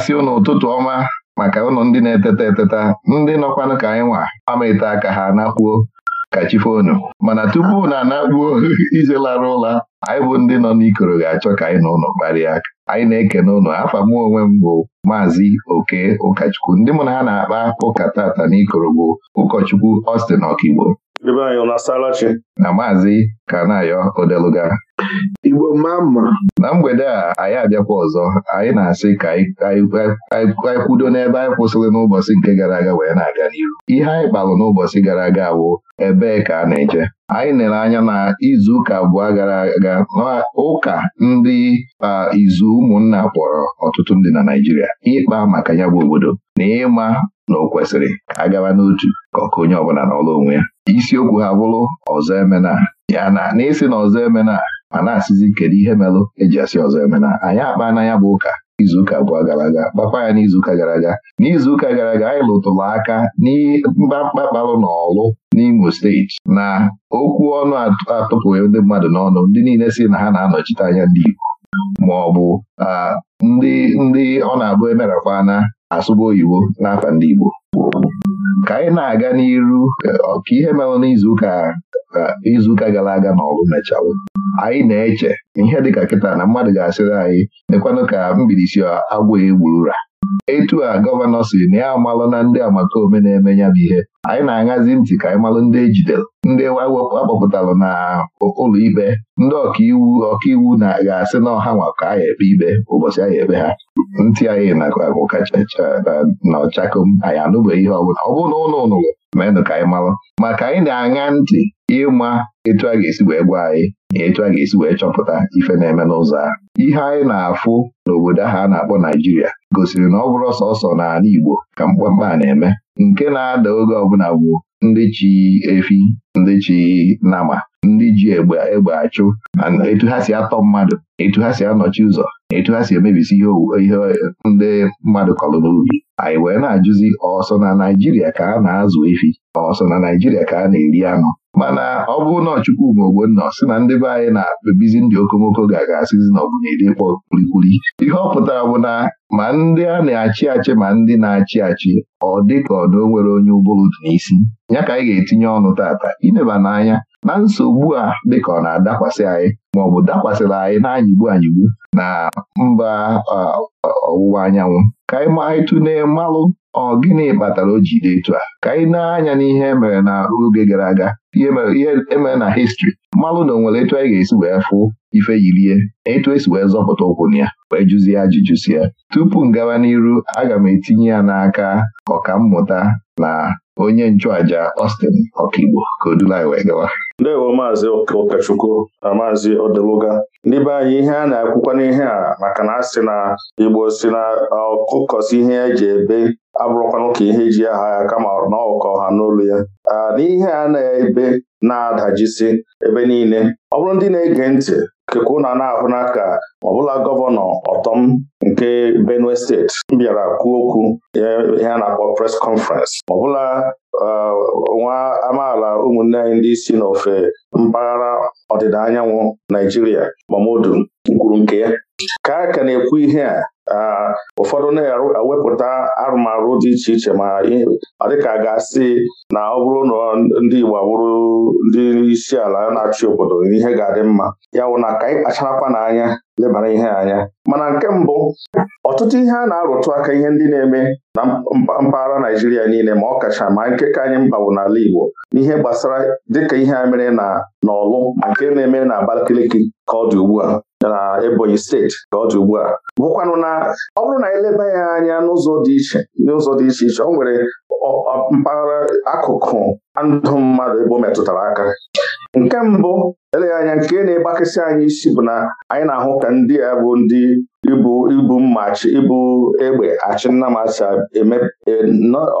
na-asị ụnụ ụtụtụ ọma maka ụnụ ndị na-eteta eteta ndị nọkwanụ ka anyị nwa ama aka ha nakpuo ka chifonu mana tupu na anakpuo ije lara ụla anyị bụ ndị nọ n'ikoro ga-achọ ka anyị na ụlọ kparịa aka anyị na eke ụlọ afa mụ onwe m bụ maazị oke ụkọchukwu ndị mụ na ha na-akpa ụka tata n'ikoro bụ ụkọchukwu ọstin ọkigbo. Ebe anyị ọ na-asala chi? na maazị Kanayo Odeluga Igbo mma mma na mgbede a anyị abịakwa ọzọ anyị na-asị ka anyị kwudo n'ebe anyị kwụsịrị n'ụbọchị nke gara aga wee na-aga n'iru ihe anyị kpalụ n'ụbọchị gara aga bụ ebee ka a na-eje anyị nere anya na izu ụka abụọ gara aga ụka ndị izu ụmụnna kpọrọ ọtụtụ ndị na Naịjirịa ịkpa maka ya bụ obodo na ịma na ọ kwesịrị ka a n'otu ka ọka onye ọbụla n'ọrụ onwe ya isiokwu ha bụrụ ọzọ emena ya na n'isi na ọzọ emena ma na-asịzi kedu ihe merụ eji asị ọzọ emena anyị akpa na ya bụ ụka izuụka abụọ gara aga gbakwa ya n'izuụka gara aga n'izuụka gara aga anyị lụtụrụ aka n'ịmkpamkpa kparụ na ọlụ, n'Imo steeti na okwu ọnụ atụpụghị ndị mmadụ n'ọnụ ndị niile si na ha na-anọchite anya ndị Igbo ma ah, ndị ndị ọ na-abụ emerakwana asụba oyibo n'afọ ndị Igbo ka anyị na-aga n'iru eh, ka ihe mere n'izuụka eh, izuụka gara aga na ọgụ mechalụ anyị na-eche ihe ka kịta na mmadụ ga-asịrị anyị dịkwanụ ka mbilisi agwọ egburu ra etu a gọvanọ si na ya amalụ na ndị amakome na-eme ya bụ ihe anyị na-aṅazi ntị ka anyị malụ ndị ejidere ndị akpọpụtalụ na ụlọ ikpe ndị ọkaiwu ọkaiwu na ga-asị na ọha nwa ka anyị ekpe ikpe ụbọchị anyị ekpe ha ntị anyị na kachacha na ọchakom anyị anụbeghị ihe ọbụla ọ bụrụ na ụlọ ụnụlọ menụ ka anyị malụ ka anyị na-aṅa ntị ịma etu a ga-esi wee gwa anyị na etu a ga-esi wee chọpụta ife na-eme n'ụzọ ihe anyị na-afụ n'obodo ahụ a na-akpọ Naijiria gosiri na ọ bụrụ sọsọ n'ala Igbo ka mkpamkpa a na-eme nke na-ada oge ọbụla bụ ndị chi efi ndị chi nama ndị ji egbe egbe achụ etu ha si atọ mmadụ etu ha si anọchi ụzọ etu ha si emebisi ihe ndị mmadụ kọrọ n'ubi anyị wee na-ajụzi ọsọ na Naijiria ka a na-azụ efi ọsọ na Naijiria ka a na-eri anụ mana ọ bụrụ na Chukwuma nọ sị na ndị be anyị na-ebizi ndị okomoko ga-agasịzi na ọbụnyedi ịkpọ kwulikwuli ihe ọ pụtara bụ na ma ndị a na-achị achị ma ndị na-achị achị ọ dị ka ọ na o nwere onye ụbụrụ dị n'isi ya ka anyị ga-etinye ọnụ tata ineba n'anya na nsogbu a dịka ọ na-adakwasị anyị maọbụ dakwasịrị anyị na-anyịgbu anyịgbu na mba ọwụwa anyanwụ ka anyị ma anyị tụlee mmalụ ọ gịnị kpatara o ji dị etu a ka anyị na-anya n'ihe emere na oge gara aga ihe emere e na histri mmalụ na onwere etu anyị ga-esi wee fụ ife yirie etu esi wee zọpụta ụkwụ na ya wee jụzie ajụjụ si ya tupu m gawa n'iru aga m etinye ya n'aka ọkammụta na onye nchụàja ostin ọkaigbo ka o anyị wee gawa ndewo maazị ụkọchukwu na maazị odeluga ndị be anyị ihe a na-akwụkwa n'ihe a maka na asị na igbo si na ọkụkọsi ihe eji ebe abụrụkwanụ ka ihe ji aha ya kama na ọkọ ha n'olu ya n'ihe a na-ebe na-adajisi ebe niile ọ bụrụ ndị na-ege ntị keku ụna na-ahụ n'aka ọbụla gọvanọ ọtọm nke Benue steeti bịara kwuo okwu ihe a na-akpọ pres Ọ ọbụla uh, nwa amaala ụmụnne anyị ndị isi n'ofe mpaghara ọdịda anyanwụ Naijiria Mamodu kwuru nke ya ka a ka na-ekwu ihe a Ah, ụfọdụ na-ewepụta arụmarụ dị iche iche ma ọ dịka ga-asị na ọ bụrụ na ndị Igbo abụrụ ndị isi ala na-achị obodo ihe ga-adị mma ya wụ na ka anyị kpacharakwa n'anya lebara ihe anya mana nke mbụ ọtụtụ ihe a na-arụtụ aka ihe ndị na-eme na mpaghara Naijiria niile ma ọ kacha ma nke ka anyị mgbawo n'ala Igbo n'ihe gbasara dịka ihe a mere na n'ọlụ nke na-eme na Abakaliki ka ọ dị ugbu a na Ebonyi steeti ka ọ dị ugbu a bụkwanụ na ọ bụrụ na eleba ya anya n'ụzọ dị iche n'ụzọ dị iche iche ọ nwere mpaghara akụkụ ndụ mmadụ ebe ọ metụtara aka nke mbụ eleghị anya nke na-egbakasị anyị isi bụ na anyị na-ahụ ka ndị a bụ ndị ibu ibu mma ibu egbe achị nnamasa e,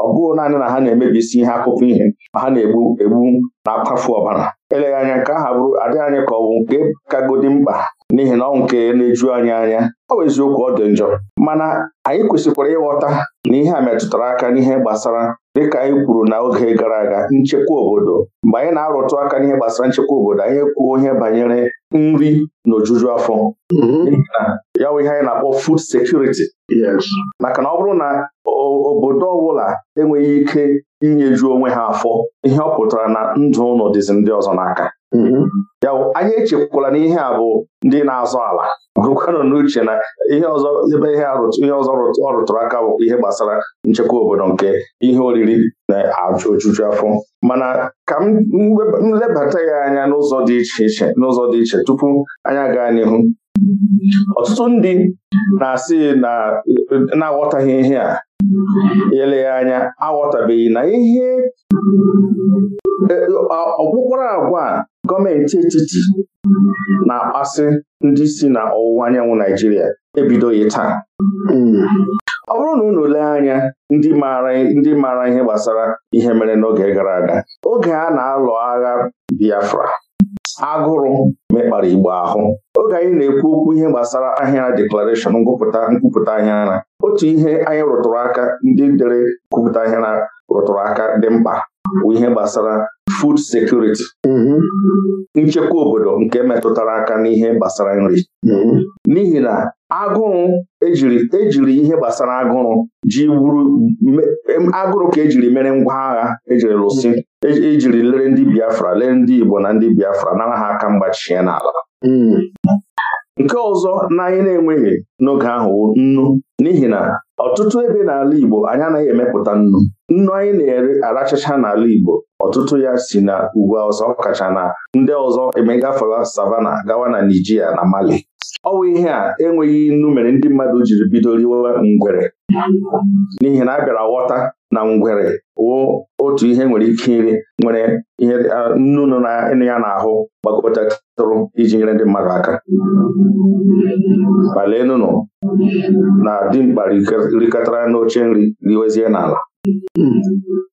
ọ bụghị naanị na ha na-emebisi ihe akụkọ ihe ma ha na-egbu egbu na-akwafu ọbara eleghị anya nke aha bụrụ adịghị anyị ka ọ bụ nke kagodi mkpa n'ihi na ọ nke na-eju anyị anya ọ bụ eziokwu ọ dị njọ mana anyị kwesịkwara ịghọta na ihe a metụtara aka n'ihe gbasara dịka anyị kwuru na oge gara aga nchekwa obodo mgbe anyị na-arụtụ aka n'ihe gbasara nchekwa obodo anyị kwuo ihe banyere nri na ojuju afọ mm-hmm. ya bụ ihe anyị na-akpọ food security maka na ọ bụrụ na obodo ọbụla enweghị ike inyeju onwe ha afọ ihe ọ pụtara na ndụ ụlọ dịzi ndị ọzọ n'aka mm-hmm. ya bụ anyị echekwala na ihe a bụ ndị na-azọ ala bụrụkwanụ n'uche na ihe ọzọ ebe ihe ọzọ ọ aka bụ ihe gbasara nchekwa obodo nke ihe oriri na ojuju afọ mana ka m lebata ya anya n'ụzọ dị iche iche n'ụzọ dị iche tupu anya gaa n'ihu ọtụtụ ndị na-asị na na-aghọtaghị ihe a eleghị anya aghọtabeghị na ihe e, ọkpụkpọrọ agwa gọọmenti etiti na-akpasị ndị si na ọwụwa anyanwụ Naijiria ebidoghị taa ọ bụrụ na unu lee anya ndị maara ihe gbasara ihe mere n'oge gara aga oge a na-alụ agha Biafra agụrụ mekpara Igbo ahụ oge anyị na-ekwu okwu ihe gbasara ahịara deklarashọn ngụpụta nkwupụta ahịara otu ihe anyị rụtụrụ aka ndị dere nkwupụta ahịara rụtụrụ aka dị mkpa bụ ihe gbasara food security mm-hmm. nchekwa obodo nke metụtara aka n'ihe gbasara nri mm-hmm. n'ihi na agụrụ ejiri ejiri ihe gbasara agụrụ ji wuru agụrụ ka ejiri mere ngwa agha ejiri lụsị e, ejiri lere ndị Biafra lee ndị Igbo na ndị Biafra nara ha aka mgbachie n'ala mm-hmm. nke ọzọ na anyị na-enweghị n'oge ahụ nnu n'ihi na ọtụtụ ebe n'ala Igbo anyị anaghị emepụta nnu nnu anyị na-ere arachacha n'ala Igbo ọtụtụ ya si na ugwu ọzọ kacha na ndị ọzọ emegafere savana gawa na Nijiria na Mali ọ bụ ihe a enweghị nnu mere ndị mmadụ jiri bido riwe ngwere n'ihi na a bịara ghọta na ngwere wụ otu ihe nwere ike iri nwere ihe nnu nọ ya n'ahụ gbakọtatụrụ iji nyere ndị mmadụ aka malenụnụ na dimkpa rikọtara n'oche nri riwezie n'ala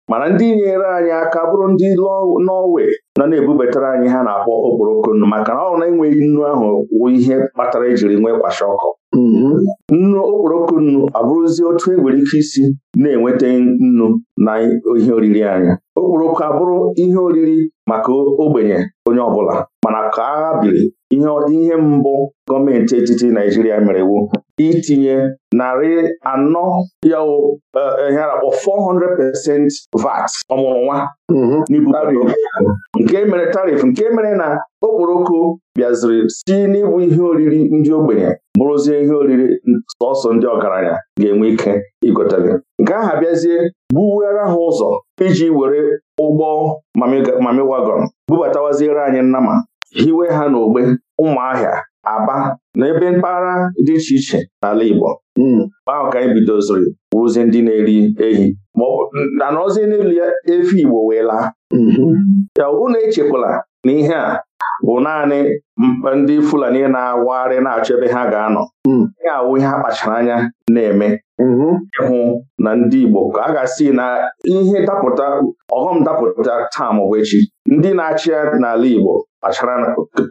mana ndị nyere anyị aka bụrụ ndị Nọọwe nọ na-ebubatara anyị ha na-akpọ okporoko nnu maka na ọ na-enweghị nnu ahụ wụ ihe kpatara ejiri nwee ọkụ nnu okporoko nnu abụrụzi otu e nwere ike isi na-enweta nnu na ihe oriri anya okporoko abụrụ ihe oriri maka ogbenye onye ọbụla mana ka agha biri ihe mbụ gọọmenti etiti Naijiria mere iwu itinye narị anọ ya eh, ihe akpọ 400% VAT ọmụrụnwa mhm. n'ibu nke mere tarif nke mere na okporoko bịaziri si n'ịbụ ihe oriri ndị ogbenye bụrụzie ihe oriri sọsọ ndị ọgaranya ga-enwe ike igotere nke aha bịazie buwere ha ụzọ iji were ụgbọ mami wagọn bubatawaziere anyị nnama hiwe ha n'ogbe ụmụahịa aba na ebe mpaghara dị iche iche n'ala Igbo hmm. ahụ ka anyị bidoziri ndị na-eri ehi na n'elu efi Igbo wee laa hmm. ya unu echekwala na ihe a bụ naanị ndị Fulani na-awagharị na-achọ ebe ha ga-anọ hmm. ihe awụ ihe a kpachara anya na-eme mm-hmm. ịhụ na ndị Igbo ka a ga-asị na ihe dapụta ọghọm dapụta taa maọbụ echi ndị na-achị ya n'ala Igbo kpachara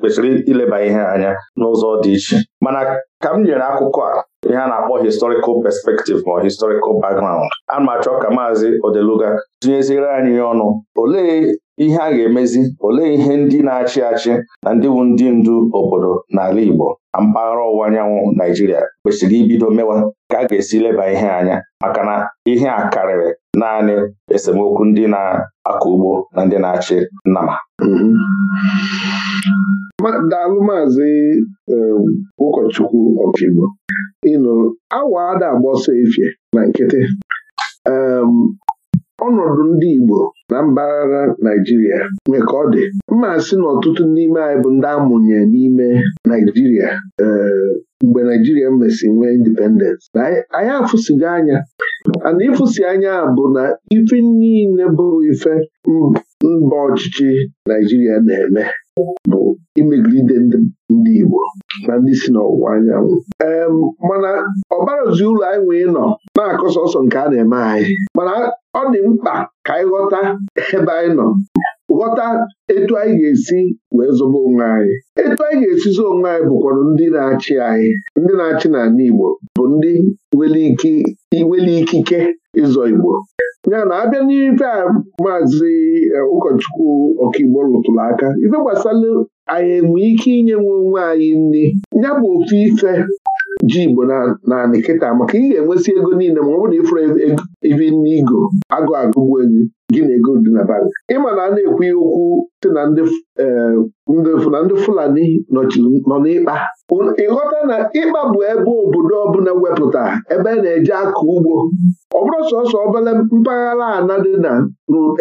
kwesịrị ileba ihe anya n'ụzọ dị iche mana ka m nyere akụkọ a ihe a na-akpọ historical perspective ma historical background a ma achọ ka maazị Odeluga tinyeziere anyị ọnụ olee ihe a ga-emezi olee ihe ndị na-achị achị na ndị bụ ndị ndu obodo n'ala Igbo na mpaghara ọwụwa anyanwụ Naijiria kwesịrị ibido mewa ka a ga-esi leba ihe anya maka na ihe a karịrị naanị esemokwu ndị na-akọ ugbo na ndị na-achị nnama daalụ maazị um, ụkọchukwu ịnụ awa ada na nkịtị um, ọnọdụ ndị Igbo na mpaghara Naijiria nwere ka ọ dị mma sị na ọtụtụ n'ime anyị bụ ndị amụnye n'ime Naijiria eh, mgbe Naijiria mesi nwee indipendens na anyị afụsigo anya ana ịfụsi anya bụ na ife niile bụ ife mba ọchịchị Naijiria na-eme bụ imegide ndị Igbo na ndị si n'ọwụwa anyanwụ ee mana ọbarazi ụlọ anyị nwee nọ na-akọ sọsọ nke a na-eme anyị mana ọ dị mkpa ka anyị ghọta ebe anyị nọ ghọta etu anyị ga-esi wee zọba onwe anyị etu anyị ga zo onwe anyị bụkwara ndị na-achị anyị ndị na-achị n'ala Igbo bụ ndị nwere ikike ịzọ Igbo ya na abịa n'ife a maazị eh, ụkọchukwu ọkaigbo rụtụrụ aka ife gbasara anyị enwe ike inye nwe onwe anyị nri ya bụ ofu ife ji Igbo na nkịta maka ị ga-enwesị ego niile ma ọ bụrụ na ịfụrụ ibe n'igo agụ agụgbu ego gị na ego dị na bank ma na a na-ekwu ya okwu sị na ndị Fulani nọ n'ịkpa ịghọta na ịkpa bụ ebe obodo ọbụla wepụta ebe na-eje akọ ugbo ọ bụrụ sọsọ obere mpaghara ana dị na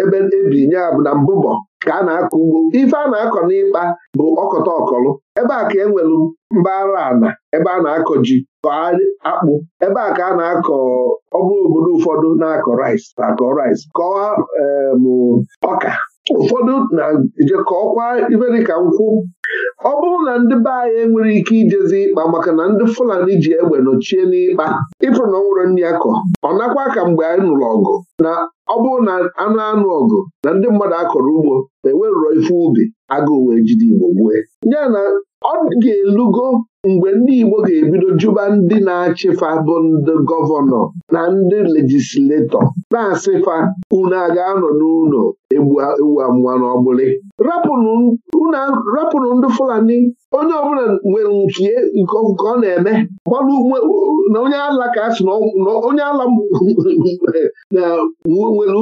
ebe ebinye bụ na mbụbọ ka a na-akọ ugbo ife a na-akọ n'ịkpa bụ ọkọta ọkọlụ ebe a ka e nwere mpaghara ana ebe a na-akọ ji akpụ ebe a ka a na-akọ ọ bụrụ obodo ụfọdụ na-akọ rice akọ rice kọọ ọka ụfọdụ na-ejekọ iberika nkwụ ọ bụrụ na ndị be anyị enwere ike ijezi ịkpa maka na ndị Fulani ji egbe nọchie n'ịkpa ịfụrụ na ọnwụrụ nwere nri akọ ọ nakwa ka mgbe anyị nụrụ ọgụ na ọ bụrụ na anụ anụ ọgụ na ndị mmadụ akọrọ ugbo ma enwerụrọ ife ubi agụụ wee jide Igbo gbue ya ọ ga-elugo mgbe ndị Igbo ga-ebido jụba ndị na-achịfa bụ ndị gọvanọ na ndị lejisletọ na-asịfa unu a ga-anọ n'ụlọ ewu amụwa n'ọgbụlị rapụrụ ndị Fulani onye ọbụla nwere nke ọ na-eme na onye ala ka asị na onye ala nwere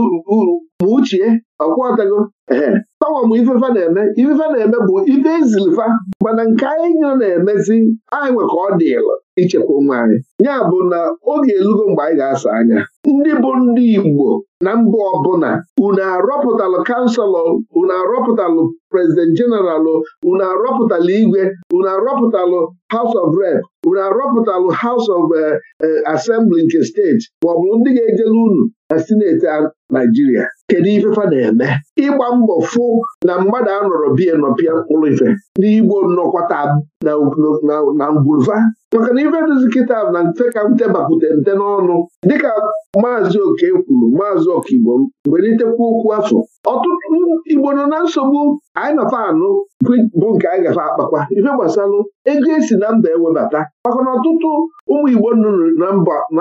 ma uchie ọkwọtago ee tọwa m ifefa na-eme ifefa na-eme bụ ife izilifa mana nke anyị nyere na-emezi anyị nwe ka ọ dịlụ ichekwa ụmụ anyị ya bụ na oge elugo mgbe anyị ga-asa anya ndị bụ ndị Igbo na mba ọbụla unu arọpụtalụ kanselọ unu arọpụtalụ prezident jeneralụ unu arọpụtalụ igwe unu arọpụtalụ haus of Rep unu arọpụtalụ haus of eh, eh, asembli nke steeti maọbụ ndị ga-ejele unu na sineti Naijiria kedu ife fa na-eme ịgba mbọ fụ na mmadụ anọrọ bie nọpịa mkpụrụ ife n'Igbo nọkwata na ngwulva maka na ife dụzi na mfe ka m bapụta mte n'ọnụ dịka maazị oke kwuru maazị ọkaigbo mgbelitekwa okwu afọ ọtụtụ igbo nọ na nsogbu anyị nọfa anụ bụ nke anyị gafe akpakwa ife gbasalụ ego esi na mba ewebata maka na ọtụtụ ụmụ igbo nọ na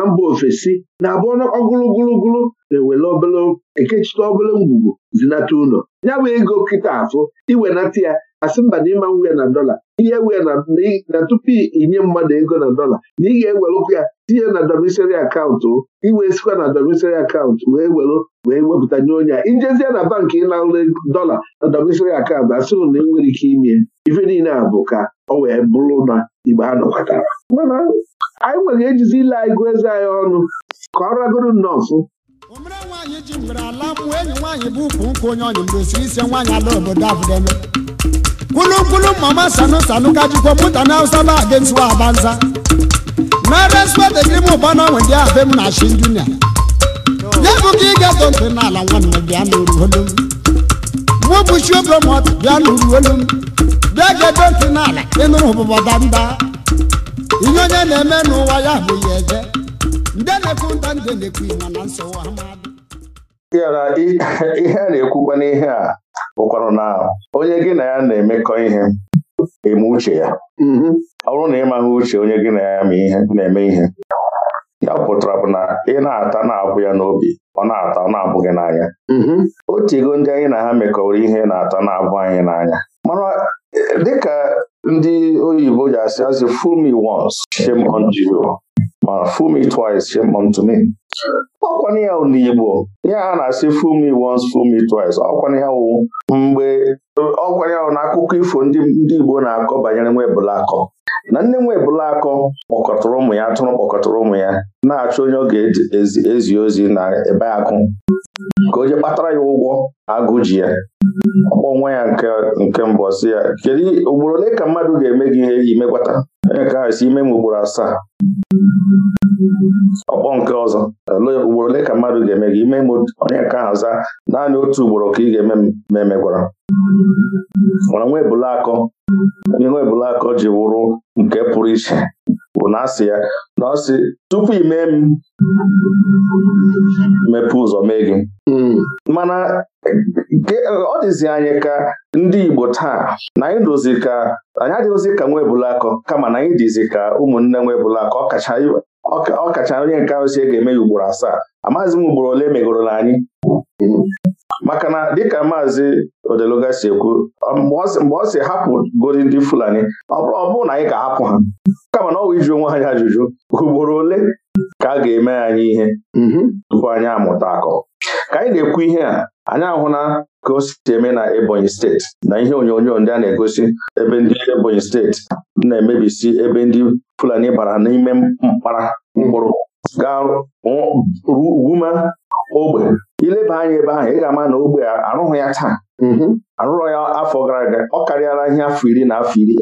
mba ofesi na-abụ ọgụlụgụlụgụlụ na-ewere obele ekechite obele ngwugwu zinata ụlọ ya bụ ego nkịta afọ iwenata ya asị mba na ịma nwunye na dọla ihe wee na tupu inye mmadụ ego na dọla na ị ga-ewelụkwa ya tinye na dọmisari akaụntụ iwe sikwa na dọmisari akaụntụ wee welu wee wepụta nye onye a ijezie na bankị ịnara dọla na dọmisari akaụntụ asị na e nwere ike ime ife niile a bụ ka ọ wee bụrụ na igbe a nọkọtara mana anyị nwere ejizi ile ego gụọ eze anyị ọnụ ka ọ ragoro nnọọsụ omere nwaanyị ji mgbere ala mụọ enyi nwaanyị bụ ukwu nkwu onye ọnyị mgbe osiri isi nwaanyị ala obodo abụdeme kwulukwulu mama sanu sanu ka jikwa mụta na hausa ba against wa na respect gị ụba na nwedị abe m na shin junior ya bụ ka ị ga-eto ntị n'ala nwanne bịa n'oruolu m mụ bụ chi oge mọt bịa n'olu bịa n'ala ịnụrụ ụbụbọda mba ihe onye na-eme n'ụwa ya bụ ya eje ndị na-ekwu ndị na-ekwu na nsogbu ihe a na n'ihe a bụkwanụ na onye gị na ya na-emekọ ihe eme uche ya mm-hmm. ọ bụrụ na ị uche onye gị na ya na-eme ihe ya pụtara bụ na ị na-ata na-abụ ya n'obi ọ na-ata ọ na abụghị n'anya mm-hmm. otu ego ndị anyị na ha mekọrọ ihe na-ata na-abụ anyị n'anya mana dịka ndị oyibo ji asị asị fool me once shame unto you ma fool me twice shame unto me ọkwana ya n'Igbo ya a na-asị fool me once fool me twice ọkwana ya wụ mgbe ọkwana ya wụ n'akụkọ ifo ndị Igbo na-akọ banyere nwa ebulakọ na nne nwa ebulakọ kpọkọtara ụmụ ya tụrụ kpọkọtara ụmụ ya na-achọ onye ọ ga-ezi ozi na ebe akụ ka o ji kpatara ya ụgwọ agụ ji ya akpọ nwa ya nke mbụ si ya kedu ugboro ole ka mmadụ ga-eme gị ihe iji imegwata Onye si, ime m ugboro asaa ọkpọ nke ọzọ ugboro ole ka mmadụ ga-eme gị ime m onye nke ahụ zaa naanị otu ugboro ka ị ga-eme ma emegwara mana nwa akọ nwa ebule akọ ji wụrụ nke pụrụ iche bụ na asị ya na ọ sị tupu ime m mepee ụzọ mee gị hmm. mana ọ dịzi anyị ka ndị Igbo taa na anyị dozi ka anyị adịghịzi ka nwa ebulakọ kama na anyị dịzi ka ụmụnne nwa ebulakọ ọkacha onye nke ahụ si e ga-eme ya ugboro asaa amaghịzi m ugboro ole megoro na anyị maka na dịka maazị odeluga si ekwu mgbe ọ si hapụ godi ndị Fulani ọ bụrụ na anyị ga-ahapụ ha kama na ọ wụ iji onwe anyị ajụjụ ugboro ole ka a ga-eme anyị ihe mhm. tupu anyị amụta akọ ka anyị na-ekwu ihe a anyị ahụla ka o eme na Ebonyi steeti na ihe onyonyo ndị a na-egosi ebe ndị Ebonyi steeti na-emebisi ebe ndị Fulani bara n'ime mkpara mkpụrụ gaa ogbe ileba anya ebe ahụ ị ga-ama na ogbe arụghị ya taa mm-hmm. arụrọ ya afọ gara aga ọ karịala ihe afọ iri na afọ iri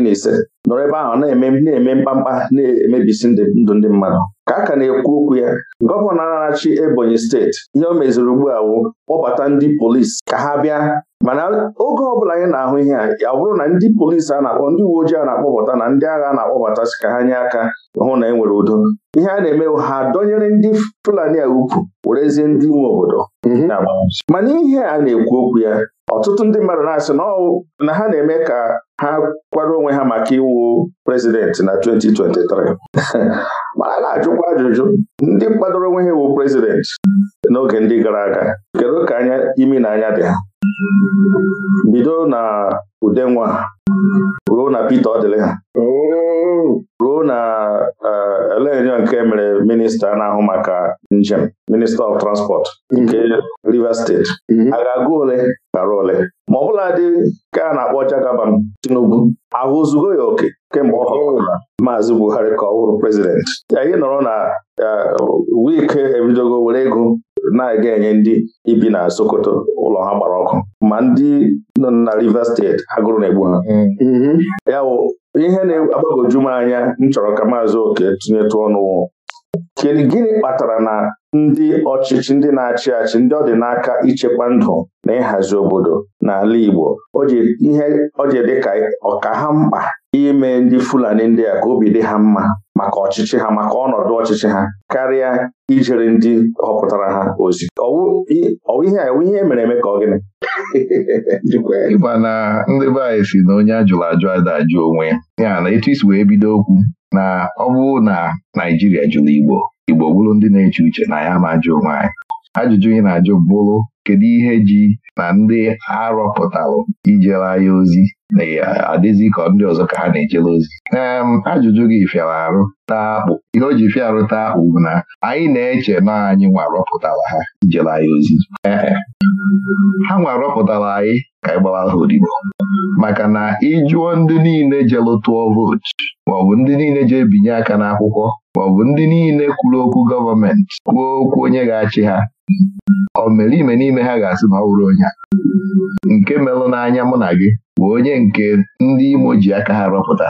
na ise nọrọ ebe ahụ na-eme na-eme mkpamkpa na-emebisi ndụ ndị mmadụ ka a ka na-ekwu okwu ya gọvanọ na-achị Ebonyi steeti ihe o meziri ugbu a wụ kpọbata ndị polisi ka ha bịa mana oge ọbụla anyị na-ahụ ihe a ya bụrụ na ndị polisi a na-akpọ ndị uwe ojii a na-akpọbata na ndị agha a na-akpọbata ka ha nye aka hụ na e nwere udo ihe a na-eme ha dọnyere ndị Fulani a ukwu werezie ndị nwe obodo mhm. mana ihe a na-ekwu okwu ya ọtụtụ ndị mmadụ na-asị na ha na-eme ka ha kwado onwe ha maka iwu prezidenti na 2023 ma a na-ajụkwa ajụjụ ndị kwadoro onwe ha iwu prezidenti n'oge ndị gara aga kedu ka anya imi na anya dị ha bido na udenwa ruo na Peter ọ ha ruo na eh, elenyo nke mere minista na-ahụ maka njem minista of transport nke Rivers steeti mhm. a ga-agụ ole gara ole ma ọ bụla dị ka a na-akpọ jagaban Tinubu ozugbo ya oke kemgbe ọ họpụtara Maazị Buhari ka ọ wụrụ prezidenti anyị nọrọ na eh, wike ebidogo were ego na-aga enye ndị ibi na Sokoto ụlọ ha gbara ọkụ ma ndị nọ na Rivers steeti agụrụ na-egbu ha mm-hmm. ya ihe na-agbagoju m anya m chọrọ ka maazị oke tụnyetụ ọnụ kedu gịnị kpatara na ndị ọchịchị ndị na-achị achị ndị ọ dị n'aka ichekwa ndụ na ịhazi obodo n'ala Igbo ihe ọ ji dị ka ọka ha mkpa ime ndị Fulani ndị a ka obi dị ha mma maka ọchịchị ha maka ọnọdụ ọchịchị ha karịa ijere ndị họpụtara ha ozi ọwụ ihe ihe e mere eme ka ọ gịnị na ndị be anyị si na onye ajụrụ ajụ ada ajụ onwe ya na etu isi wee bido okwu na ọ bụrụ na Naijiria jụrụ Igbo Igbo bụrụ ndị na-eche uche na ya ma ajụ onwe anyị ajụjụ ị na-ajụ bụrụ kedu ihe ji na ndị arọpụtalụ ijere anya ozi na adịzi ka ndị ọzọ ka ha na-ejere ozi ee ajụjụ gị fịara arụ taa akpụ ihe o ji fịa arụ taa akpụ bụ na anyị na-eche na anyị nwa rọpụtara ha ijere anya ozi ee ha nwa anyị ka anyị gbara ha odibo maka na ịjụọ ndị niile jelụ tụọ vootu maọbụ ndị niile je ebinye aka n'akwụkwọ maọbụ ndị niile kwuru okwu gọọmenti kwuo okwu onye ga-achị ha ọ mere ime n'ime ha ga-asị ma ọ bụrụ onye a nke melụ n'anya mụ na gị bụ onye nke ndị Imo ji aka ha rọpụta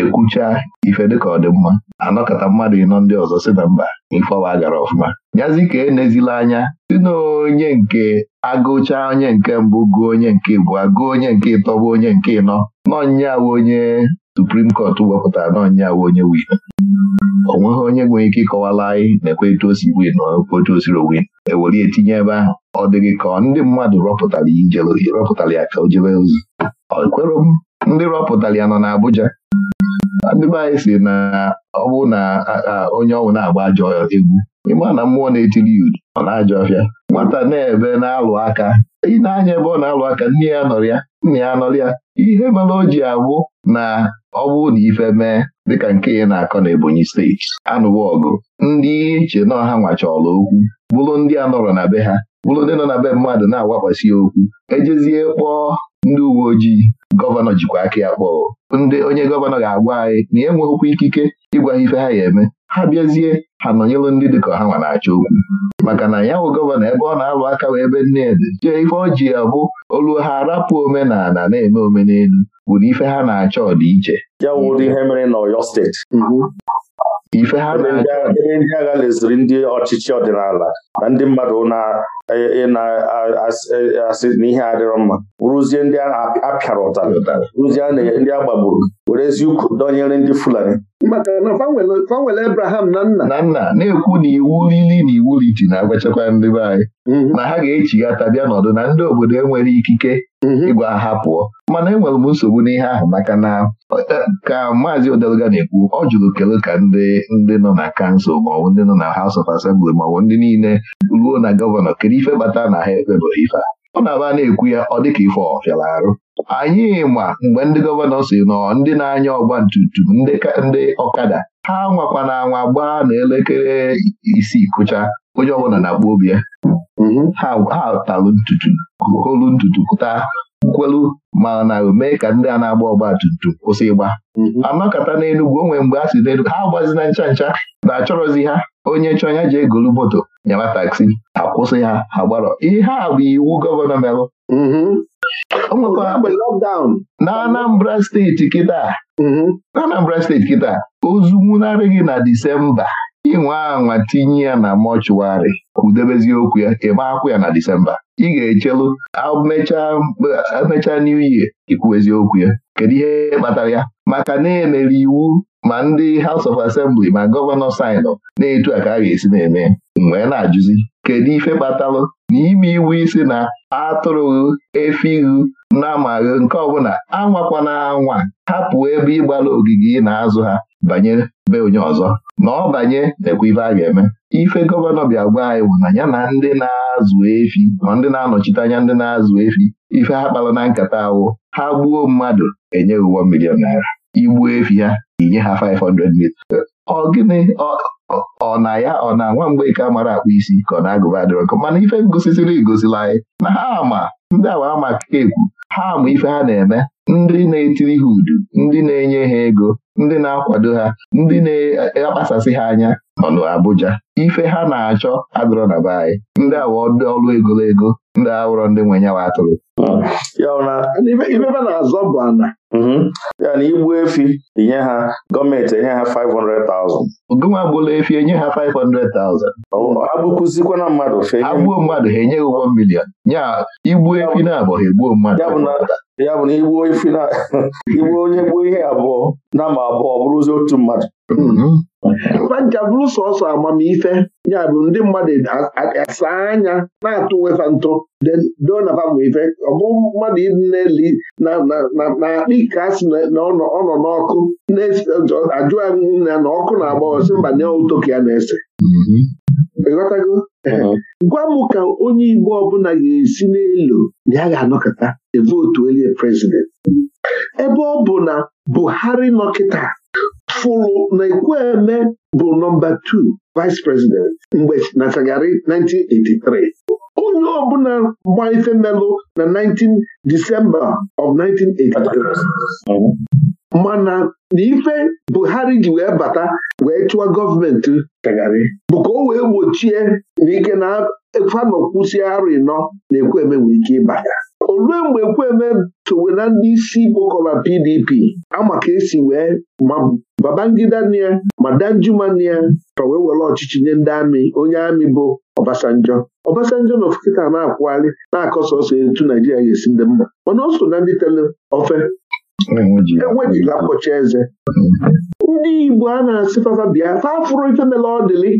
ekwucha ife dịka ọ dị mma anọkọta mmadụ ịnọ ndị ọzọ si na mba ife ọwa gara ọfụma yazi ka enezila anya si na onye nke agụcha onye nke mbụ gụọ onye nke bụ agụọ onye nke ịtọ bụ onye nke ịnọ nọ nya onye suprim kọt wepụtara na onye we onye win o nweghị onye nwere ike ịkọwala anyị na-ekwe etu osi win na etu osiri win ewere etinye ebe ahụ ọ dịghị ka ndị mmadụ rọpụtara rọpụtara ya ka o jebe ozi ọ kwere m ndị rọpụtara ya nọ na Abuja ndị be anyị si na ọ bụ na onye ọnwụ na-agba ajọ egwu ịma na mmụọ na-etiri ya udu ọ na-ajọ ọfịa nwata na-ebe na-alụ aka ị na-anya ebe ọ na-alụ aka nne ya nọrọ ya nna ya nọrọ ya ihe mere o ji abụ na ọ bụrụ na ife mee dịka nke ị na-akọ na Ebonyi steeti anụwo ọgụ ndị na ọha nwachọrọ okwu bụrụ ndị a nọrọ na be ha bụrụ ndị nọ na be mmadụ na-awakwasị okwu ejezie kpọọ ndị uwe ojii gọvanọ jikwa aka ya kpọọ ndị onye gọvanọ ga-agwa anyị na enweghịkwa ikike ịgwa ha ife ha ya eme ha bịazie ha nọnyelụ ndị dịka ha nwa na-achọ okwu maka na ya bụ gọvanọ ebe ọ na-alụ aka wee ebe nnedị jee ife ọ ji abụ olu ha arapụ omenala na-eme omenelu wụrụ ife ha na-achọ ọdịiche ya mere steeti mhm. ife ha ebe ndị agha leziri ndị ọchịchị ọdịnala na ndị mmadụ na-asị e, e, e, na ihe adịrọ mma rụzie ndị a na-apịara rụzie ndị a gbagburu were eziukwu dọnyere ndị Fulani maka na Abraham na nna na nna na-ekwu na iwu lili na iwu liti na-agwachakwa ndị be anyị mhm. na ha ga-echighata bịa n'ọdụ na ndị obodo enwere ikike mhm. ịgwa ha pụọ mana enwere m nsogbu n'ihe ahụ maka na e, ka maazị Odeluga na-ekwu ọ jụrụ kele ka ndị ndị nọ na kansụl maọbụ ndị nọ na House of Assembly maọbụ ndị niile ruo na gọvanọ kedu ife bata na ha bụ ife a ọ na-aba na-ekwu ya ọ dịka ife ọfịara arụ anyị ma mgbe ndị gọvanọ si nọ ndị na-anya ọgba ntutu ndị ọkada ha nwakwa na anwa gbaa na elekere isi kụcha onye ọbụla na-akpọ obi ya mm-hmm. ha talụ ntutu holu ntutu pụta nkwelu ma na mee ka ndị a na-agba ọgba tum tum kwụsị ịgba mm-hmm. anọkọta n'Enugwu onwe mgbe a si n'Enugwu ha agbazina ncha ncha na achọrọzi ha onye chọọ ya ji egolu moto nyawa taksi akwụsị ha ha gbarọ ihe a bụ iwu gọvanọ melụ mm-hmm. na Anambra steeti kịta mm-hmm. na Anambra steeti kịta ozu nwụnarị gị na Disemba inwe anwa tinye ya na mọchụwarị kwudebezi okwu ya ịma akwụ ya na Disemba ị ga-echelu emechaa new year ikwu eziokwu ya kedu ihe kpatara ya maka na-emere iwu ma ndị House of Assembly ma gọvanọ sainụ na-etu a ka a ga-esi na-eme wee na-ajụzi kedu ife kpatalụ na ime iwu isi na atụrụghị efighị na amaghị nke ọbụla anwakwana anwa hapụ ebe ịgbara ogige ị na-azụ ha banye be onye ọzọ na ọ banye na-ekwu a ga-eme ife gọvanọ bịa gwa anyị bụ na ya na ndị na-azụ efi ma ndị na-anọchite anya ndị na-azụ efi ife ha kpara na nkata awụ ha gbuo mmadụ enye ụgbọ milion naira igbuo efi ha inye ha 500 mita ọ gịnị ọ na ya ọ na nwa mgbe ike mara akpụ isi ka ọ na-agụba adịrọ mana ife ngosisiri egosila anyị na ha ama ndị awa ama ka ekwu ha ma ife ha na-eme ndị na-etiri ha udu ndị na-enye ha ego ndị na-akwado ha ndị na-akpasasị ha anya nọ n'Abuja ife ha na-achọ adọrọ na be anyị ndị awa ọrụ egologo ndị awụrọ ndị nwe nyawa atụrụ ibebe na-azọ bụ ana mhm. ya na igbu efi inye ha gọọmenti enye ha 500,000 ogonwe agbụla efi enye ha 500,000 agbụkụzikwana mmadụ agbuo mmadụ ha enye ụgbọ milion ya igbu efi na abụghị ha egbuo mmadụ ya bụ na igbuo onye gbuo ihe abụọ na ma abụọ bụrụzi otu mmadụ fanja mm-hmm. bụrụ sọsọ amamife ya bụ ndị mmadụ asa anya na-atụ wefa ntụ donafa bụ ọ bụ mmadụ na-eli na-akpị ka a sị na ọ nọ n'ọkụ na-ajụ na ọkụ na-agba sị mba na otoka ya na-ese ịghọtago gwa m ka onye Igbo ọbụla ga-esi n'elu ya ga-anọkọta evotu onye prezidenti ebe ọ bụ na Buhari nọkịta fụrụ na Ekwueme bụ nọmba 2 vice president mgbe na 1983 onye ọbụla gba gbanyefe melụ na 19 Disemba of 1983 mana na Buhari ji wee bata wee chụwa gọọmenti Shagari bụ ka o wee gbochie na ike na fanọkwusi arụ ịnọ na Ekwueme nwee ike ịba olue mgbe Ekwueme towe na ndị isi gbokọba PDP ama ka esi wee ma Babangida nia ma Danjuma nia ka wee were ọchịchị nye ndị amị onye amị bụ ọbasanjọ. ọbasanjọ na ofekịta na-akwụgharị na-akọsọ ọsọ etu Naijiria ga-esi ndị mma mana ọ so na ndị tele ofe enwejighị e akpọchi eze ndị Igbo a na-asị fafa bịa fa afụrụ ife mele ọ dịlị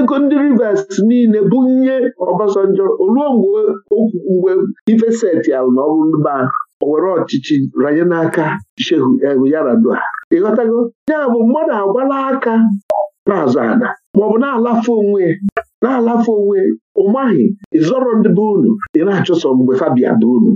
ego ndị Rivers niile bụ nye Obasanjo oluo mgbe ife seti alụ na ọbụlụba owere ọchịchị ranye n'aka Shehu eh, Yaradua ịghọtago ya bụ mmadụ agwala aka na-azụ ada maọbụ na-alafe onwe na-alafe onwe ụmaghị ịzọrọ ndị be unu ị na-achụso mgbe fabia bụ unu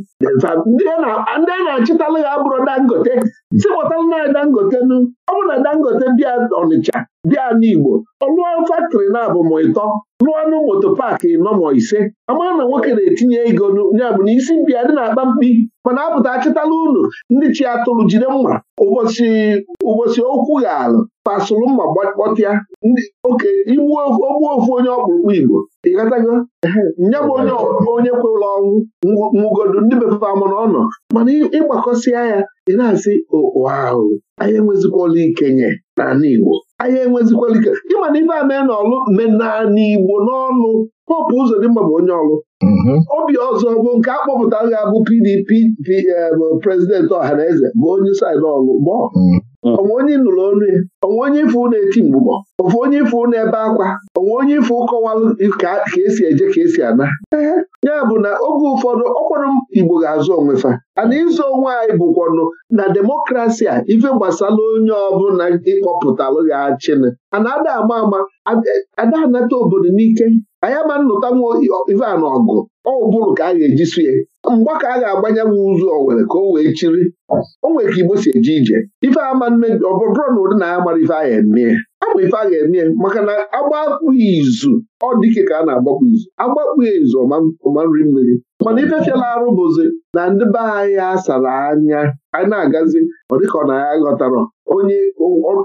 ndị a na achịtalụ ya bụrụ dangote tiwọtala na dangote nụ, ọ bụ na dangote bịa ọnịcha bịa n'igbo ọ lụọ faktịrị na-abụ ma ịtọ lụọ nụ moto paakị nọ ise ama na nwoke na-etinye ego ya na isi bịa dị na-akpa mkpi mana apụta achịtala unu ndị chi atụrụ jide mma ụbọchị okwu gharụ pasụlụ mma gbọtịa oke igbuo ogbuo ofu onye ọkpụrụkpụ igbo ịghọtago nye m onye onye kwe ọnwụ nwụgodu ndị befe amụrụ ọnụ mana ịgbakọsịa ya ị na-asị ụwa ahụ anyị enwezikwala ikenye n'ala Igbo anyị enwezikwala ike ịmana na ife a mee n'ọlụ naanị Igbo n'ọnụ Popu Uzodimma bụ onye ọlụ mm-hmm. obi ọzọ bụ nke a kpọpụtara ga eh, bụ PDP prezidenti ọha na eze bụ onye saịdị ọlụ gbọọ mm. onwe onye nụrụ onu ya onwe onye ifu na-eti mgbụgbọ ọfụ onye ifu na-ebe akwa onwe onye ifu kọwalụ ka esi eje ka esi ana ya bụ na oge ụfọdụ ọkwarụ Igbo ga-azụ onwefa ana ịzụ onwe anyị bụkwanụ na demokrasi a ife gbasara onye ọbụla ịkpọpụtalụ ya achịnị ana ada ama ama ada anata obodo n'ike anyị ma nnụta nwa na ọgụ ọbụrụ ka a ga-eji sie mgba ka a ga-agbanye nwa ụzọ Owere ka o wee chiri o nwere ka Igbo si eje ije ife ama nne ọbụrụ na ụdị na ya mara ife a ga-eme ama ife a ga-eme maka na agbapụ izu ọ dike ka a na-agbapụ izu agbapụ izu ọma nri mmiri mana ife fiala arụ bụzi na ndị be anyị asara anya ana na-agazi ọ dịka ọ na ya ghọtara onye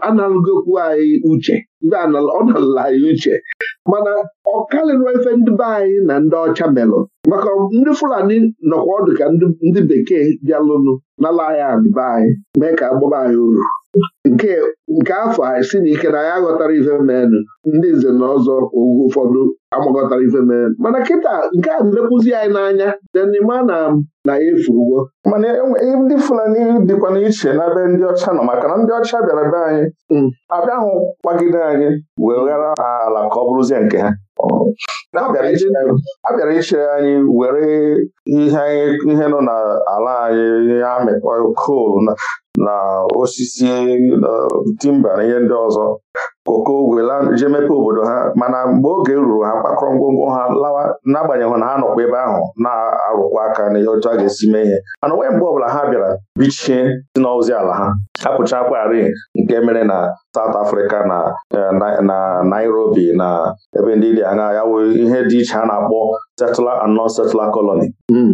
analụgokwu anyị uche ọ nalụla anyị uche mana ọ karịrị ndị be anyị na ndị ọcha melụ maka ndị Fulani nọkwa ọdụ ka ndị bekee bịalụnụ n'ala anyị adịba anyị mee ka agbụba anyị uru nke nke afọ anyị si n'ike na anyị aghọtara ife menụ ndị nze na ọzọ oge ụfọdụ amaghọtara ife mana kịta nke a mekwuzi anyị n'anya denima na na ya efurugo mana e, e, ndị Fulani dịkwa n'iche n'ebe ndị ọcha nọ maka na ndị ọcha bịara be anyị mm. abịahụ kwagide anyị wee ghara ala ka ọ bụrụzie nke ha a bịara iche anyị were ihe nọ n'ala anyị ya mịkpọ kol na osisi timba na ihe ndị ọzọ koko wela jee mepe obodo ha mana mgbe oge ruru ha kpakọrọ ngwongwo ha lawa n'agbanyeghị na ha nọkwa ebe ahụ na-arụkwa aka na ihe otu a ga-esi mee ihe mana onwe mgbe ọbụla ha bịara bichie si n'ozi ala ha hapụcha akwarị nke mere na South Africa eh, na Nairobi na ebe ndị dị anya ya ihe dị iche a na-akpọ settler and non-settler colony hmm.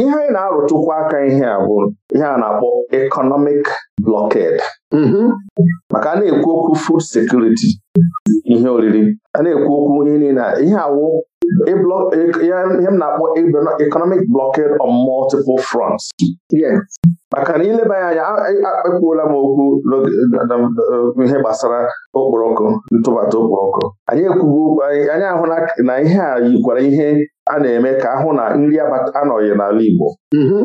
ihe anyị na-arụtụkwa aka ihe a bụ ihe a na-akpọ economic blọked. Mm-hmm. maka a na-ekwu okwu fuud sekuriti ihe oriri a na-ekwu okwu ihe niile ihe awụ e e, ihe m na-akpọ economic blọked on multiple fronts maka na ileba ya anya ekwuola m okwu ihe gbasara okporoko ntụbata okporoko anyị ekwugo anyị ahụ na ihe a yikwara ihe a na-eme ka ahụ na nri anọghị n'ala Igbo mhm.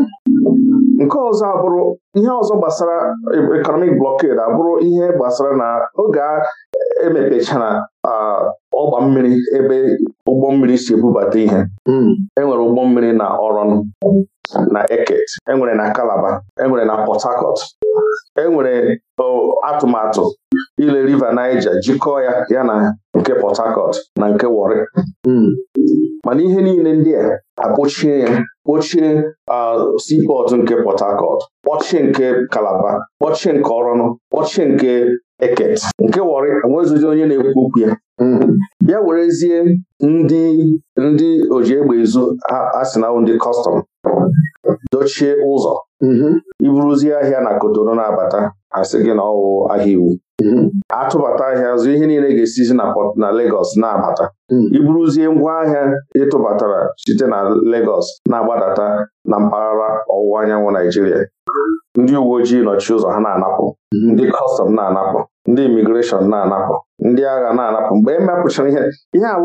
nke ọzọ abụrụ ihe ọzọ gbasara economic blockade abụrụ ihe gbasara na oge emepechara ọgba mmiri ebe ụgbọ mmiri si ebubata ihe hmm. enwere ụgbọ mmiri na ọrọnụ na eket enwere na kalaba enwere na port harcourt enwere atụmatụ ile river Niger jikọọ ya ya na nke port harcourt na nke Warri hmm. mana ihe niile ndị a akpọchie ya kpọchie seaport nke port harcourt kpọchie nke kalaba kpọchie nke ọrọnụ kpọchie nke eket nke wọrị onye na-ekwu okwu ya ya werezie ndị ndị oji egbe izu asịnawụ ndị kọstọm dochie ụzọ iburuzie ahịa na kotonu na-abata asị gị na ọwụ ahịa iwu atụbata ahịa zụ ihe niile ga-esizi na Lagos na-abata iburuzie ngwa ahịa ịtụbatara site na legos na-agbadata na mpaghara ọwụwa anyanwụ Naijiria ndị uwe ojii nọchi ụzọ ha na-anapụ mhm. ndị kọstọm na-anapụ ndị imigreshọn na-anapụ ndị agha na-anapụ mgbe e mepụchara ihe ihe a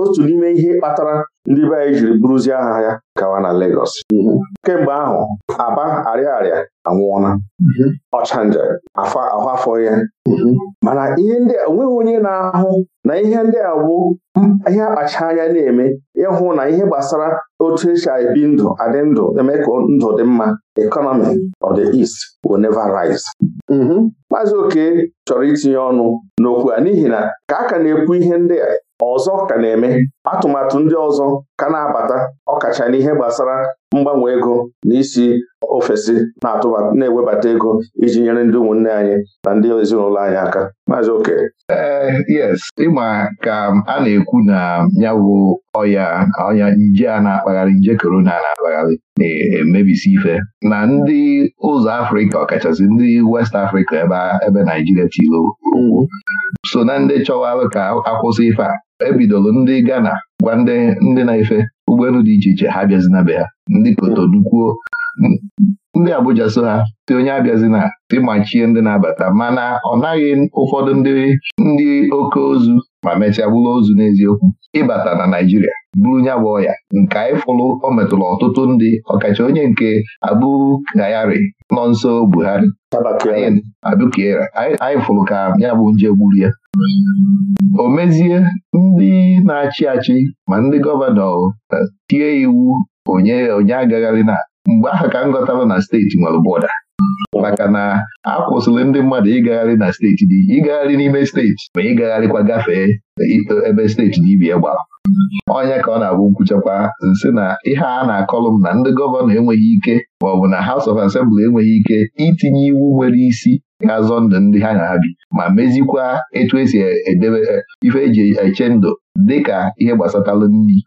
otu n'ime ihe kpatara ndị be anyị jiri bụrụzie agha ya gawa na legos mhm. kemgbe ahụ Aba Ariaria anwụọla mhm. ọchanja afọ afọ ya mhm. mana ihe ndị onweghị onye na-ahụ na ihe ndị a bụ ihe akpacha anya na-eme ịhụ na ihe gbasara otu esi ebi ndụ adị ndụ eme ka ndụ dị mma economy of the East will never rise. Maazị Oke chọrọ itinye ọnụ n'okwu ugbu a n'ihi na ka a ka na-ekwu ihe ndị a ọzọ ka na-eme atụmatụ ndị ọzọ ka na-abata ọkacha ihe gbasara mgbanwe ego na isi ofesi na-ewebata ego iji nyere ndị ụmụnne anyị na ndị ezinụlọ anyị aka maazị oke eh, yes ịma ka a na-ekwu na nyawụ ọya ọnya nje a na-akpagharị nje korona na-akpagharị na-emebisi ife na ndị ụzọ Afrịka ọkachasị ndị West Afrịka ebe Naijiria tiri mm-hmm. so na ndị chọwarụ ka akwụsị ife a bidoro ndị Ghana gwa ndị na-efe ụgbọelu dị iche iche ha na be ha ndị Kotonu kwuo ndị Abuja so ha ti onye abịazi na ịmachie ndị na-abata mana ọ naghị ụfọdụ ndị ndị oke ozu ma mechaa bụrụ ozu n'eziokwu ịbata na Naijiria, bụrụ nya bụ ọya nke anyị fụrụ o metụrụ ọtụtụ ndị ọkacha onye nke Abu nọ nso Buhari Abukera anyị fụrụ ka ya bụ nje gburu ya o mezie ndị na-achị achị ma ndị gọvanọ eh, tie iwu onye onye agagharị na mgbe ahụ ka m ghọtara na steeti nwere bọda maka na a kwụsịrị ndị mmadụ ịgagharị na steeti dị ịgagharị n'ime steeti ma ịgagharịkwa gafee ebe steeti dibia gbara Onye ka ọ na-abụ nkwuchakwa nsị na ihe a na-akọlụ m na ndị gọvanọ enweghị ike maọbụ na House of Assembly enweghị ike itinye iwu nwere isi ga-azọ ndụ ndị ha na-abi ma mezikwa etu esi edebe e, ife eji eche ndụ dịka ihe gbasatalụ nri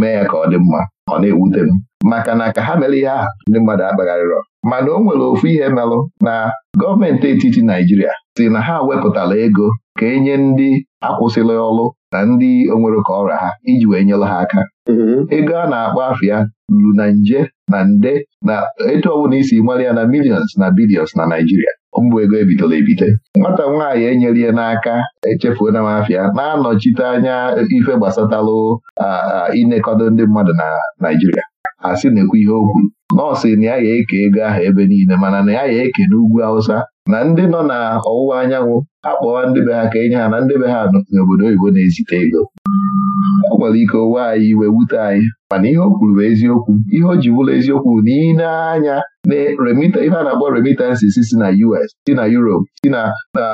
mee ya ka ọ dị mma ọ na-ewute m maka na ka ha mere ihe ahụ ndị mmadụ akpagharịrọ mana o nwere ofu ihe merụ na gọọmenti etiti Naijiria si na ha wepụtara ego ka enye ndị akwụsịla ọrụ na ndị onwere ka ọrịa ha iji wee nyere ha aka mm-hmm. ego a na-akpọ afịa ruru na nje na nde na etu ọbụla isi mara ya na millions na bilions na Naijiria mbụ ego ebitere ebite nwata nwaanyị enyere ya n'aka echefuo na m na-anọchite anya ife gbasatalụ inekọdo ndị mmadụ na Naijiria asị na-ekwu ihe okwu nọọsụ na ya ga-eke ego ahụ ebe niile mana na ya ga-eke n'ugwu Hausa na ndị nọ na ọwụwa anyanwụ akpọwa ndị be ha ka enye ha na ndị be ha n'obodo oyibo na-ezite ego ọ nwere ike owe anyị iwe wute anyị mana ihe o kwuru bụ eziokwu ihe o ji bụrụ eziokwu na ị na-anya ihe a na-akpọ remittances si na US si na Europe si na na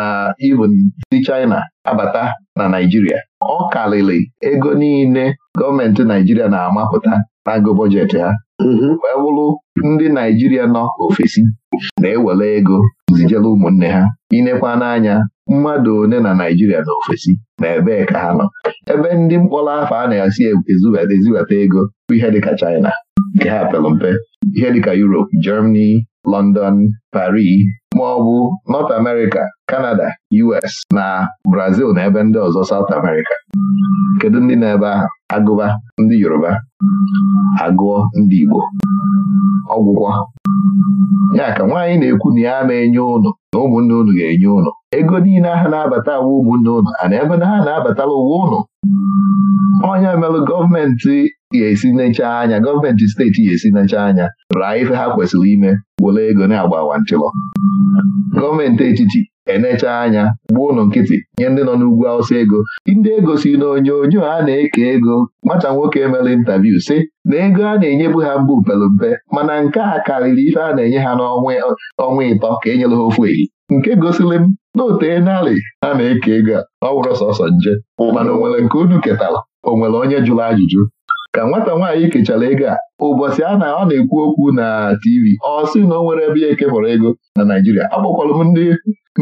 ah, even si China abata na Naijiria ọ karịrị ego niile gọọmenti Naijiria na-amapụta agụ bọjetị ha mm-hmm. wee bụrụ ndị Naijiria nọ ofesi na-ewere ego zijela ụmụnne ha inekwa n'anya mmadụ one na Naijiria na ofesi na ebee ka ha nọ ebe ndị mkpọrọ afọ a na esi eziweta ego bụ ihe dịka China nke ha pere mpe ihe dịka Europe Germany London Paris ma ọ bụ North America Canada US na Brazil na ebe ndị ọzọ South America kedu ndị na-ebe ahụ agụba ndị Yoruba agụọ ndị Igbo ọgwụgwọ ya ka nwaanyị na-ekwu na ya na-enye ụnụ na ụmụnne ụnụ ga-enye ụnụ ego niile aha na-abata awa ụmụnne ụnụ a na ebe na ha na-abatala ụwa ụnụ onye mere gọọmenti ga-esi necha anya gọọmenti steeti ga-esi necha anya raa ife ha kwesịrị ime were ego na-agba awantịlọ gọọmenti etiti enecha anya gbuo ụlọ nkịtị nye ndị nọ n'ugwu awụsa ego ndị ego si n'onyonyo a na-eke ego Mata nwoke mere intaviu sị na ego a na-enyebu ha mbụ pere mpe mana nke a karịrị ife a na-enye ha n'ọnwa ịtọ ka e nyere ha ofu ehi nke gosiri m na otee narị a na-eke ego a ọ wụrụ sọsọ nje mana o nke unu ketara onwere onye jụrụ ajụjụ ka nwata nwaanyị kechara ego a ụbọchị a na ọ na-ekwu okwu na TV ọ sị na o nwere ebe ya ekepụrụ ego na Naijiria akpọkwalụ m ndị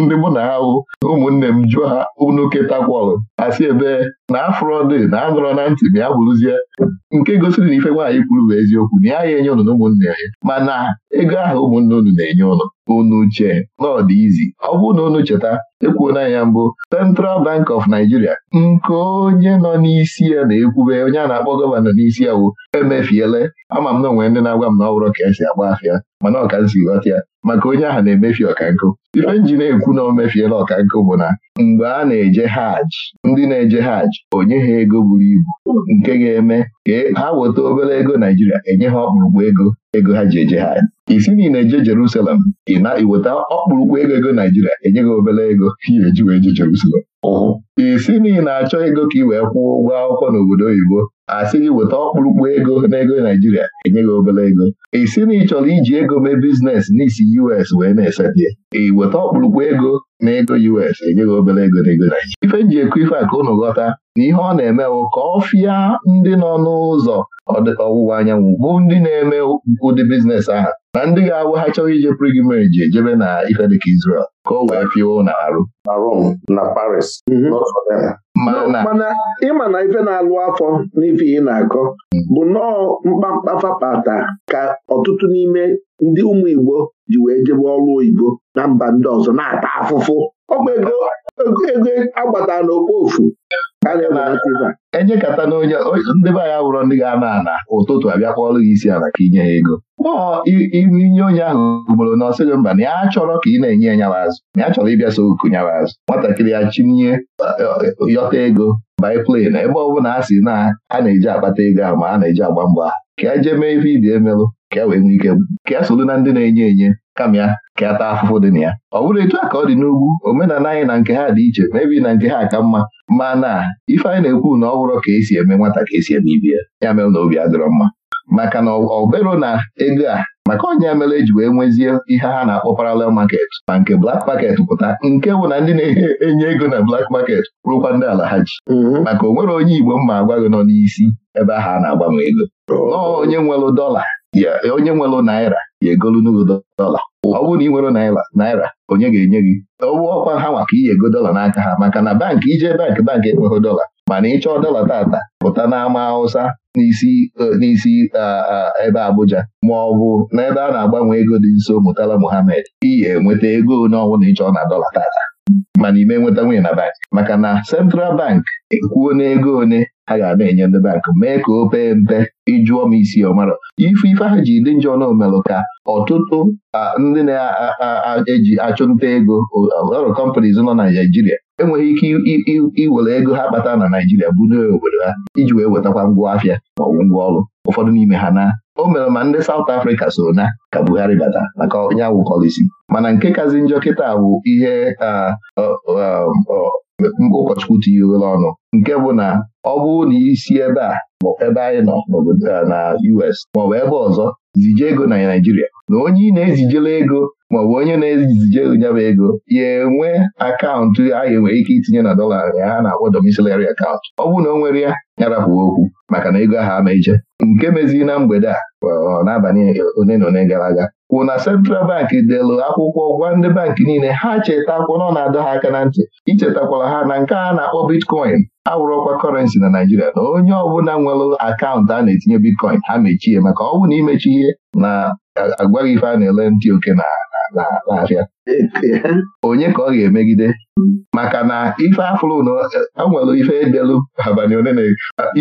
ndị mụ na ahụ ụmụnne m jụọ ha unu ketakwalụ asị ebe na afrọdị na anụrọ na ntị ma ya bụrụzie nke gosiri na ife nwaanyị kwuru bụ eziokwu na ya ya enye ụnụ na ụmụnne ya mana ego ahụ ụmụnne unu na-enye ụnụ unu che ọ dị izi ọ bụrụ na unu cheta ekwuona ya mbụ Central Bank of Nigeria nke onye nọ n'isi ya na-ekwube onye a na-akpọ gọvanọ n'isi ya wụ emefiele ama m na onwe ndị na-agwa m na ọ bụrụ ka esi agba afịa mana ọka m si ghọta ya maka onye ahụ na-emefi ọkankụ ife nji na-ekwu na o mefiela ọkankụ bụ na mgbe a na-eje hajj ndị na-eje hajj onye ha ego buru ibu nke ga-eme ka e, ha weta obere ego Naijiria enye ha ọkpụrụkpụ ego ego ha ji eje ha isi niile eje Jerusalem ị na-eweta ọkpụrụkpụ ego ego Naijiria enye gị obere ego ya eji wee je Jerusalem isi niile na-achọ ego ka ị wee kwụọ ụgwọ akwụkwọ n'obodo oyibo asị gị weta ọkpụrụkpụ ego n'ego Naijiria enye gị obere ego isi na ị chọrọ iji ego mee biznes n'isi US wee na-esetie ị weta ọkpụrụkpụ ego na ego US enye gị obere ego n'ego Naijiria ife m ji ekwu ife a ka unu ghọta na ihe ọ na-emewo ka ọ fịa ndị nọ n'ụzọ ọwụwa anyanwụ bụ ndị na-eme ụdị biznes ahụ na ndị ga-awụ ha chọrọ ije prigimeji ejebe na ife dịka Israel ka o wee pịwa na arụ na Rome na Paris mhm. mana ịma na ife na-alụ afọ n'ife ị na-akọ bụ nnọọ mkpamkpa fapata ka ọtụtụ n'ime ndị ụmụ Igbo ji wee jebe ọrụ oyibo na mba ndị ọzọ na-ata afụfụ bụ ego ego agbata n'okpofu enyekata na onye ndị be anyị wụrọ ndị ga-ana ana ụtụtụ abịakwa ọrụ gị isi ala ka inye ya ego maọ inye onye ahụ ugboro na ọsịghị mba na ya achọrọ ka ị na-enye ya nyawa azụ na ya chọrọ ịbịa so oku nyawa azụ nwatakịrị ya chinye e, e, yọta ego biplane na ebe ọ bụla a sị na a na-eji akpata ego a ma a na-eji agba mgba ka ya e jee mee ife ibi emelụ ka wee nwee ike ka e solu na ndị na-enye enye kama ya ka ya e taa afụfụ dị na ya ọ bụrụ etu a ka ọ dị n'ugwu omenala anyị na nke ha dị iche mebi na nke ha ka mma mana ife anyị na-ekwu na ọ bụrụ ka esi eme nwata ka esi eme ibi ya ya mere na obi adịrọ mma maka na ọbero na ego a maka onye mere eji wee nwezie ihe ha na-akpọ parallel market ma nke black maket pụta nke bụ na ndị na-enye ego na black market rụkwa ndị ala ha ji mm-hmm. maka o onye Igbo mma agwa gị nọ n'isi ebe ahụ a na-agbanwe ego oh. nọọ onye nwere dola ya onye nwere naira ya egolu n'ụzọ dọla ọ bụrụ na ị nwere naira onye ga-enye gị ọ ọkwa ha maka iyi ego dọla n'aka ha maka na bankị ije bankị bankị enweghị dọla mana ị chọọ dọla tata pụta n'ama Hausa n'isi e, ebe Abuja ma ọ bụ n'ebe a na-agbanwe ego dị nso Murtala Muhammed iyi enweta ego onye na ịchọọ na dọla tata mana ime nweta nwunye na bank maka na Central Bank ekwuo n'ego one ha ga na-enye ndị bank mee ka o pee mpe ịjụọ m isi ọmara ife ife ha ji dị njọ na omelụ ka ọtụtụ ndị na-eji achụ nta ego ọrụ companies nọ na Naijiria enweghị ike iwere ego ha kpata na Naijiria na obodo ha iji wee wetakwa ngwa afịa maọbụ ngwa ọrụ ụfọdụ n'ime ha na o mere ma ndị South Africa so na ka Buhari bata maka onye awụ mana nke kazi njọ kịta bụ ihe ụkọchukwu tinyegoro ọnụ nke bụ na ọ bụ na isi ebe a ebe anyị nọ na US maọbụ ebe ọzọ zije ego na Naijiria na onye ị na ezijele ego maọbụ onye na-ezije nyaba ego ya enwe akaụntụ ahịa nwere ike itinye na dọla ya ha na-akpọ domiciliary akaụntụ ọ bụrụ na o nwere ya nyarapụ okwu maka na ego ahụ ama nke mezi na mgbede a n'abalị one na one gara aga kwụ na Central Bank delụ akwụkwọ gwa ndị bankị niile ha chetakwa na ọ na-adọ ha aka na ntị ichetakwara ha na nke a na-akpọ bitcoin awụrụkwa kọrensị na Naijiria na onye ọbụla nwere akaụntụ a na-etinye bitcoin ha mechie maka ọ bụ na imechi ihe na agwaghị ife a na-ele ntị oke na na-abịa onye ka ọ ga-emegide maka na ife afụrụ na a nwere ife edelu abalị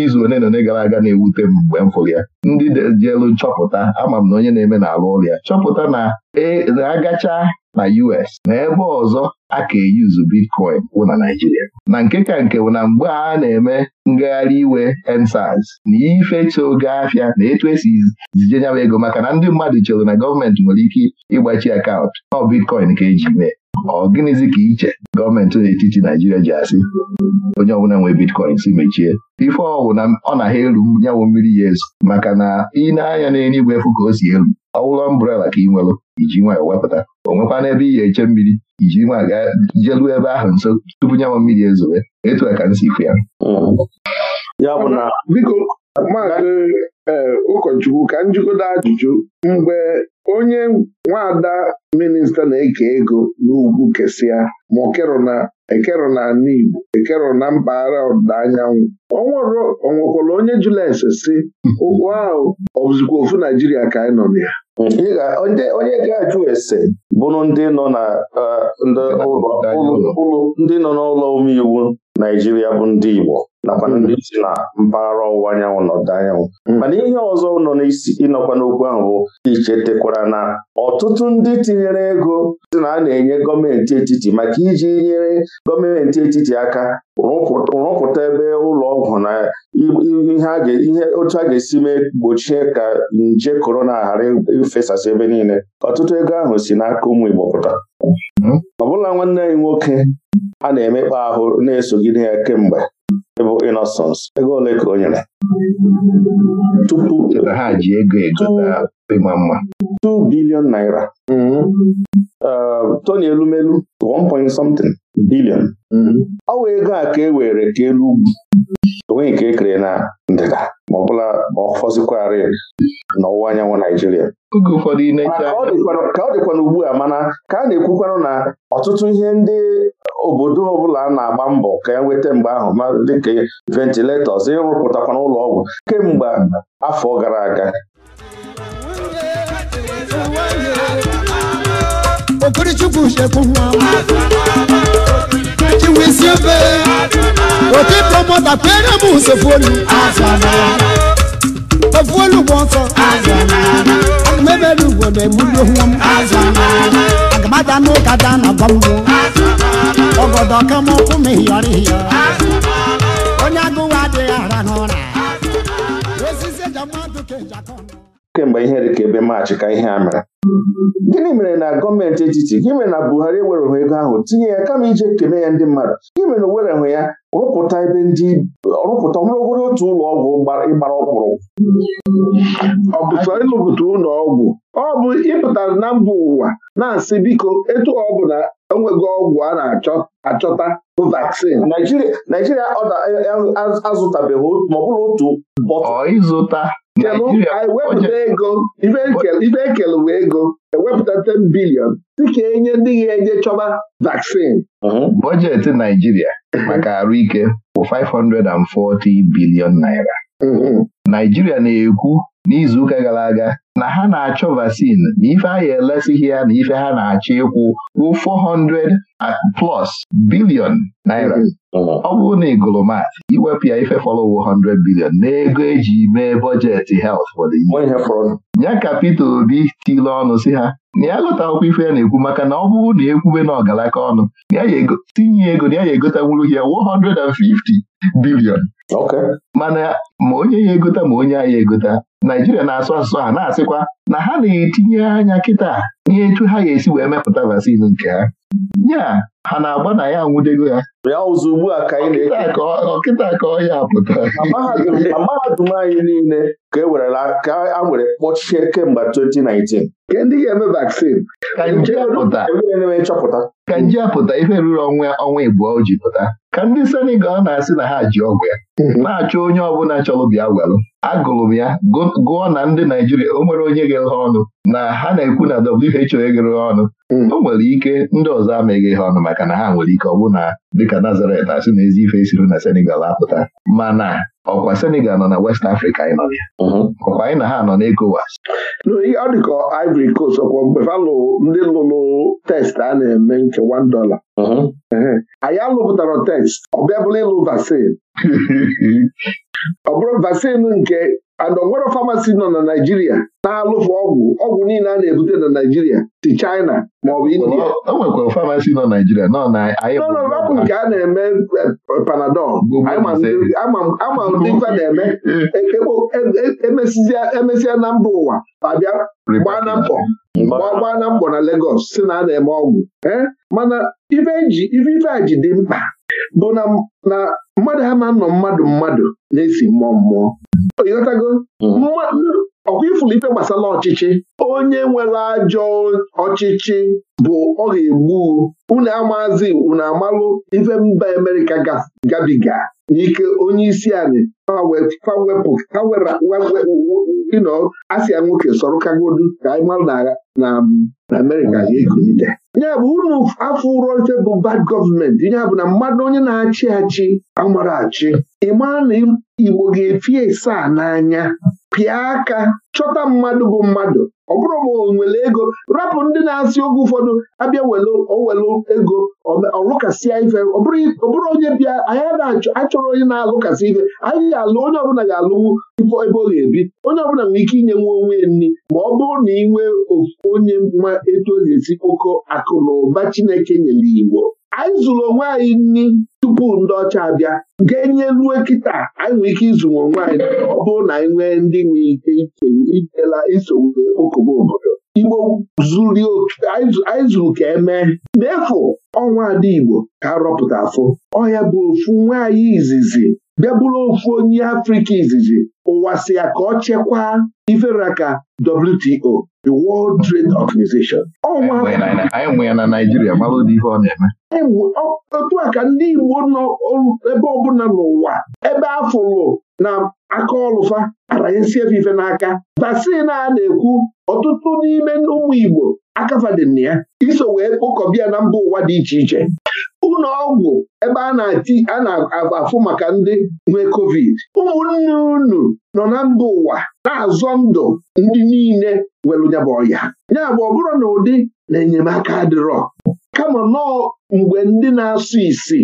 izu one na one gara aga na-ewute m mgbe m fụrụ ya ndị elu nchọpụta ama m na onye na-eme na alụ ụlọ ya chọpụta na e, agacha na US na ebe ọzọ a ka eyuzu bitcoin wụ na Naijiria na nke ka nke bụ na mgbe a na-eme ngagharị iwe ensaz na ife oge afịa na etu esi zijenyawa ego maka na ndị mmadụ chere na gọọmenti nwere ike ịgbachi akaụntụ ọ bitcoin ka eji mee ọ gịnịzi ka iche gọọmenti n'etiti Naijiria ji asị onye ọbụla nwee bitcoin si mechie ife ọwụ na ọ na ha elu nyanwụ mmiri ya ezu maka na ị na-anya igwe efu ka o si elu ọ wụlọ mbrela ka ị nwelụ iji nwayọ wepụta o nwekwa n'ebe ị ga-eche mmiri iji nwa ga jelu ebe ahụ nso tupu nyanwụ mmiri ezowe etu a ka m si fụ ya hmm. ee eh, ụkọchukwu ka njikọta ajụjụ mgbe onye nwaada minista na-eke ego n'ugwu kesịa ma okerona ekero na ala Igbo ekero na mpaghara ọdịda anyanwụ ọ nwekwara onye Jules si ụgwọ ahụ ọbụzikwa ofu Naijiria ka anyị nọ na ya onye ga-ajụ ese bụrụ ndị nọ eh, n'ụlọ omeiwu Naijiria bụ ndị Igbo nakwa hmm. ndị si na mpaghara ọwụwa anyanwụ na ọdịda anyanwụ hmm. mana ihe ọzọ nọ n'isi ịnọkwa n'okwu ahụ bụ ichetekwara na ọtụtụ ndị tinyere ego si na a na-enye gọọmenti etiti maka iji nyere gọọmenti etiti aka rụpụta ebe ụlọ ọgwụ na ihe otu a ga-esi mee gbochie ka nje korona ghara ifesasị ebe niile ọtụtụ ego ahụ si n'aka ụmụ Igbo pụta hmm. ọ bụla nwanne anyị nwoke a na-emekpa ahụ na-esogide ya kemgbe bụ inosons ego ole ka o nyere tupu ha ji ego egota ịma mma 2 billion naira mm-hmm. uh, toni elumelu 1 point something billion mm-hmm. ọ bụ ego a ka e were ka elu ugwu onwe nke e kere na ndịda ma ọ bụla ma ọ fọzikwarị n'ọwụwa anyanwụ Naijiria ka ọ dịkwana ugbua a mana ka a na-ekwukwanụ na ọtụtụ ihe ndị obodo ọbụla na-agba mbọ ka e nweta mgbe ahụ ma dịka ventiletọs ịrụpụtakwana ụlọ ọgwụ kemgbe afọ gara aga iwisi ebe oke promota kwere m usofuolu ofuolu bụ ọsọ aga m ebere ugbo na egbuli onwe m aga m ada na bambo ọgọdọ ka m ọkụ m hiyọrọ hiyọ onye agụwa dị ara n'ụra osisi eji kemgbe ihe ka ebe maachị ka ihe a mere gịnị mere na gọọmenti etiti gị mere na Buhari ewerehụ ego ahụ tinye ya kama ije kene ya ndị mmadụ gị mere na o werehụ ya rụpụta ebe ndị rụpụta ọbụrụgodo otu ụlọ ọgwụ ịgbara ọkpụrụ ọ bụ ịlụpụta ụlọ ọgwụ ọ bụ ịpụtara na mba ụwa na-asị biko etu ọ bụ na enweghị ọgwụ a na-achọta bụ vaksin Naijiria azụtabeghị ma bụrụ otu bọtụ ịzụta anyị ego ibe ekele bụ ego ewepụta 10 bilion dịka enye ndị ga-eje chọba vaccine. Mhm. bọjetị Naijiria maka arụike bụ 540 bilion naira mhm. Naijiria na-ekwu n'izuụka gara aga na ha na-achọ vaccine na ife a ya elesighị ya na ife ha na-achọ ịkwụ bụ 400 plus billion naira mm-hmm. ọ bụrụ na igolomat iwepụ ya ife fọlọwo 100 billion n'ego eji mee bọjetị health ya ka pete Obi tile ọnụ si ha na ya lụta akwụkwọ ife ya na-ekwu maka na ọ bụrụ na ekwube na ọgalaka ọnụ tinye ego na ya ya egotanwuru ya 150 billion mana ma onye ya egota ma onye a ya egota Naijiria na-asụ asụsụ ha na asị sịkwa na ha na-etinye anya kịta ihe etu ha ga-esi wee mepụta vaccine nke ha nya ha na-agba na ya anwụdego ya ya ụzọ a ka anyị na-eke ọkịta ka ọ ya pụta na mahadum anyị niile ka e were ka a were kpọchie kemgbe 2019 Ke ndị ga-eme vaccine ka nje nchọpụta ka nje apụta ife ruru ọnwa ọnwa ịbụọ o ji pụta ka ndị Senegal na-asị na ha ji ọgwụ ya hmm. na-achọ onye ọbụla chọrọ bịa welụ agụrụ m ya gụọ na ndị Naijiria o nwere onye ghere ọnụ na ha na-ekwu na WHO eghere ọnụ hmm. o nwere ike ndị ọzọ ameghị ihe ọnụ maka na ha nwere ike ọ bụ na dịka Nazaret asị na ezi ife siri na Senegal apụta mana ọkwa Senegal nọ na West Africa anyị nọ ya mhm. ọkwa anyị na ha nọ na ọ dị Ivory Coast ọkwa mgbe ndị lụrụ test a na-eme nke one dollar mhm. anyị alụpụtara test ọ bịa bụla ịlụ vaccine ọ bụrụ vaccine nke and onwero famasi nọ na Naijiria na-alụfụ ọgwụ ọgwụ niile a na-ebute na Naijiria si China maọbụ India enwekwara nọ na ọbụ nke a na-eme eh, panadol ama ndị ife na-eme e, e, e, emesịa na mba ụwa abịa gbaa na mkpọ gbaa na mkpọ na legos si na a na-eme ọgwụ eh? mana ife ife a ji dị mkpa bụ na mmadụ ha ma nọ mmadụ mmadụ na-esi mmụọ mmụọ ịghọtago hmm. ọkwa ifulu ife gbasara ọchịchị onye nwere ajọ ọchịchị bụ ọ ga-egbu unu amazi unu amalụ ife mba Amerịka gabiga n'ike onye isi anyị ino asịa nwoke sọrọ kagodu ka anyị malụ na Amerịka ga-ekunite ya bụ unu afọ ụrọ ife bụ bad gọọmenti ya bụ na mmadụ onye na-achị achị amara achị ị na Igbo ga-efi esa n'anya pịa aka chọta mmadụ bụ mmadụ ọ bụrụ ma o nwere ego rapụ ndị na-asị oge ụfọdụ abịa owelu ego ọlụkasịa ife ọ bụrụ onye bịa anyị achọrọ onye na-alụkasị ife anyị ga-alụ onye ọbụla ga-alụwu ife ebe ọ ga-ebi onye ọbụla nwere ike inye nwa onwe nri ma ọ bụrụ na ị nwee onye nwa etu ga-esi kpokọ akụ na ụba Chineke nyere Igbo anyị zụrụ onwe anyị nri tupu ndị ọcha abịa nke enye kịta anyị nwere ike ịzụ onwe anyị ọ bụrụ na anyị nwee ndị nwere ike ichela isowue okogbo obodo igbo zuru anyị zuru ka emee n'efu ọnwa ada igbo ka rọpụta afụ ọhịa bụ ofu nwaanyị izizi bịa ofu onye afrịka izizi ụwa si ya ka ọ chekwaa ka WTO the World Trade Organization ọnwa otu a ka ndị igbo nọ ebe ọbụla n'ụwa ebe afụrụ na aka ọlụfa aranyesiefe ife n'aka vaccin a na-ekwu ọtụtụ n'ime ụmụ Igbo akafadịna ya iso wee kpokọbịa na mba ụwa dị iche iche ụlọ ọgwụ ebe a na-afụ maka ndị nwee covid ụmụnne unu nọ na mba ụwa na-azọ ndụ ndị niile nwere nyaba ọya ya bụ ọ bụrụ na ụdị na enyemaka adịrọ kama nọọ mgbe ndị na-asụ isi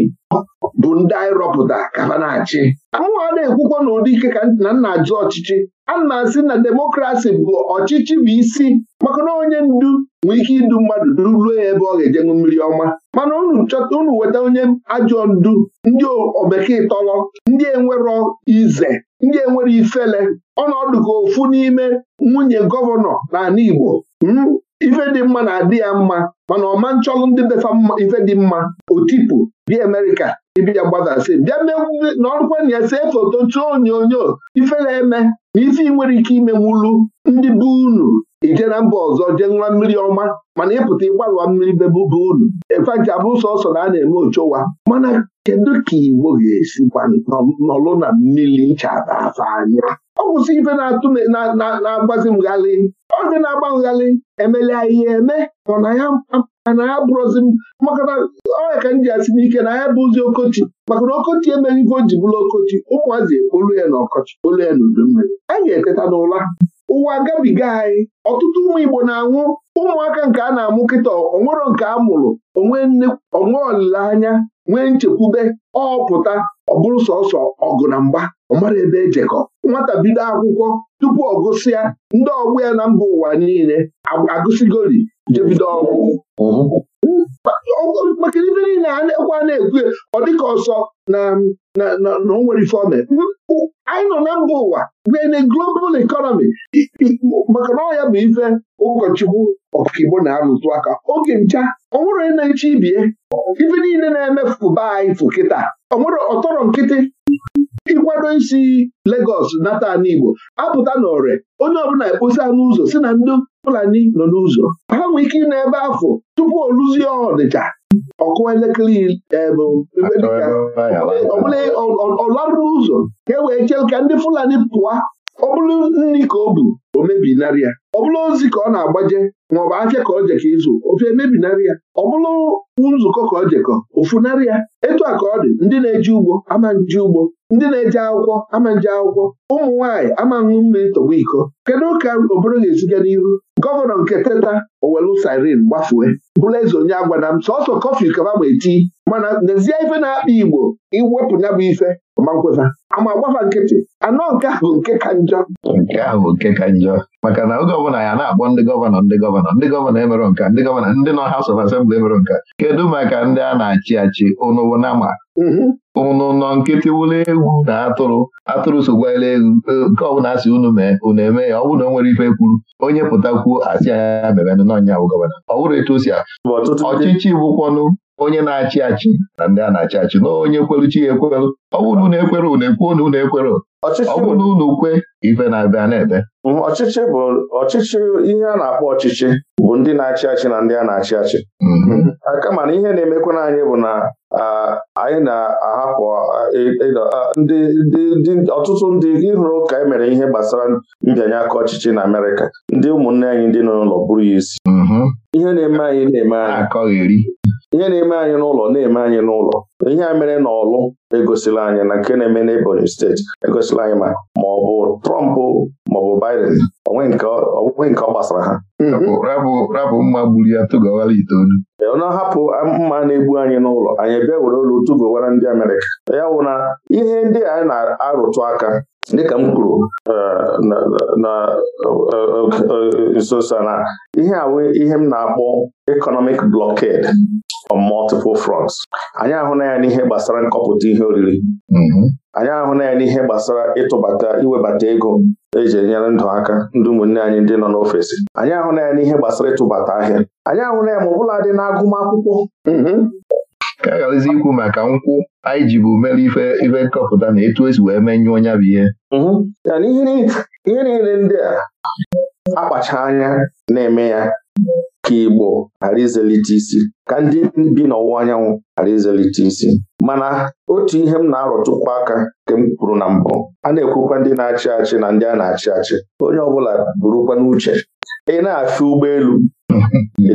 bụ ndị anyị rọpụta ka ha na-achị anwa na-ekwukwa ike ka na nna ajụ ọchịchị a na-asị na demokrasi bụ ọchịchị bụ isi maka na onye ndu nwe ike idu mmadụ ruruo ya ebe ọ ga-ejenwu mmiri ọma mana unu chọta unu weta onye ajọ ndu ndị obekee tọrọ ndị enwero ize ndị enwere ifele ọnọdụ ka ofu n'ime nwunye gọvanọ na-ala Igbo hmm? ife dị mma na-adị ya mma mana ọma nchọlụ ndị befa ife dị mma otipụ bịa Amerịka ịbịa gbadasị bịa na ọrụkwa na see foto tụọ onyonyo ife na-eme na ife ị nwere ike ime wulu ndị bụ unu ije na mba ọzọ jee nwa mmiri ọma mana ịpụta ịgbarụwa mmiri bebu bụ unu efeji abụ sọsọ na a na-eme ochowa mana kedu ka Igbo ga-esikwa nọlụ na mmiri nchaba afọ anya ọ bụzi ife na-atụ na-agbazi m ọ dị na-agba nghalị emelia ihe eme ọna ya ana ya bụrụzi maka na ọya ka m ji asị ike na ya bụzi okochi maka na okochi emeghị ife o ji bụrụ okochi ụmụazị ekpolu ya na ọkọchị olu ya na udummiri anyị ga-eteta n'ụla ụwa gabiga anyị ọtụtụ ụmụ Igbo na-anwụ ụmụaka nke a na-amụ kịta onwero nke a mụrụ onwe olileanya nwee nchekwube ọpụta ọ bụrụ sọsọ ọgụ na mgba ọmara ebe ejekọ nwata bido akwụkwọ tupu ọ gụsịa ndị ọgbọ ya na mba ụwa niile agụsigoli jebido ọgwụ maka ife niile a na-ekwu a na-ekwu ọ dịka ọsọ na o nwere ife anyị nọ na mba ụwa in a global economy maka na ọya bụ ife ụkọchukwu ọkaibo na-arụtụ aka oge ncha onwere na-eche ibie ife niile na eme anyị fụ kịta onwere ọtọrọ nkịtị ịkwado isi Lagos nata n'Igbo apụta n'ore onye ọbụla anụ ụzọ si na ndụ Fulani nọ n'ụzọ ha nwee ike ịnọ ebe afọ tupu ọ luzie ọdịcha ọkụwa elekere ọbụla ọlarụrụ ụzọ ka e wee chee ka ndị Fulani pụọ ọ bụrụ nri ka o bu o mebinarị ya ọ bụrụ ozi ka ọ na-agbaje maọbụ afịa ka o jekọ ịzụ ofe emebinarị ya ọ bụrụ nzukọ ka o jekọ ofunarị ya etu a ka ọ dị ndị na-eji ugbo ama ugbo ndị na-eje akwụkwọ ama nje akwụkwọ ụmụ nwaanyị ama mmiri tọgbu iko kedu ka obodo ga-eziga n'iru gọvanọ nke teta owelu siren gbafue bụrụ eze onye agwada m sọsọ kọfị kaba ma eti mana n'ezie ife na-akpa igbo iwepụ bụ ife ma nkwefa ama agbafa nkịtị anọ nke a bụ nke ka njọ nke a bụ nke ka njọ maka na oge ọbụla ya na-akpọ ndị gọvanọ ndị gọvanọ ndị gọvanọ emerụ nka ndị gọvanọ ndị nọ ọha of asembli emerụ nka kedu maka ndị a na-achị achị ụnụwo na ma ụnụ mhm. nọ nkịtị wụlụ egwu na atụrụ atụrụ sokwala egwu e, nke ọbụla asị unu mee unu eme ya ọ bụrụ na o nwere ife kwuru onye pụtakwuo asị anya mebenụ n'ọnya bụ gọvanọ ọ bụrụ etu si ọchịchị bụkwanụ onye na-achị achị na ndị a na-achị achị na onye chi ya ekweru ọ bụrụ na unu ekwere unu ekwuo na unu ekwere ọ na unu kwe ife na-abịa na ede mhmm, ọchịchị bụ ọchịchị ihe a na-akpọ ọchịchị bụ ndị na-achị achị na ndị a na-achị achị mhm. kama na ihe na-emekwa anyị bụ na anyị na-ahapụ e, e, e, ndị ọtụtụ ndị ịhụrụ ka e mere ihe gbasara mbịanye aka ọchịchị na Amerịka ndị ụmụnne anyị ndị nọ n'ụlọ bụrụ ya isi mhm. ihe na-eme anyị na-eme anyị ihe na-eme anyị n'ụlọ na-eme anyị n'ụlọ ihe a mere n'ọlụ egosila anyị na nke na-eme n'Ebonyi steeti egosila anyị ma ma ọ bụ Trump ma ọ bụ Biden onwe nke ọ gbasara ha mm-hmm. rabụ mma gburu ya tụgawara itoolu ọ na-ahapụ mma na-egbu anyị n'ụlọ anyị bịa were olu tụgowara ndị Amerịka ya bụ na ihe ndị anyị na-arụtụ aka dịka m kwuru eh, na nso eh, na ihe a ihe m na-akpọ economic blọked on multiple fronts anyị ahụ na ya n'ihe gbasara nkọpụta ihe oriri mm-hmm. anyị ahụla ya n'ihe gbasara ịtụbata iwebata ego eji enyere ndụ aka ndị ụmụnne anyị ndị nọ n'ofesi anyị ahụla ya n'ihe gbasara ịtụbata ahịa anyị ahụ na ya ma ọ bụla dị n'agụmakwụkwọ mm-hmm. ka a ikwu maka nkwụ anyị jibu mere ife ife nkọpụta na etu esi wee menyụọ ya bụ ihe mm-hmm. ihe niile ndị a akpacha anya na-eme ya ka Igbo ghara izelite isi ka ndị bi n'ọwụwa anyanwụ ghara izelite isi mana otu ihe m na arọtụkwu aka nke m kwuru na mbụ a na-ekwukwa ndị na-achị achị na ndị a na-achị achị onye ọbụla burukwa n'uche ị na-afịa ụgbọelu ị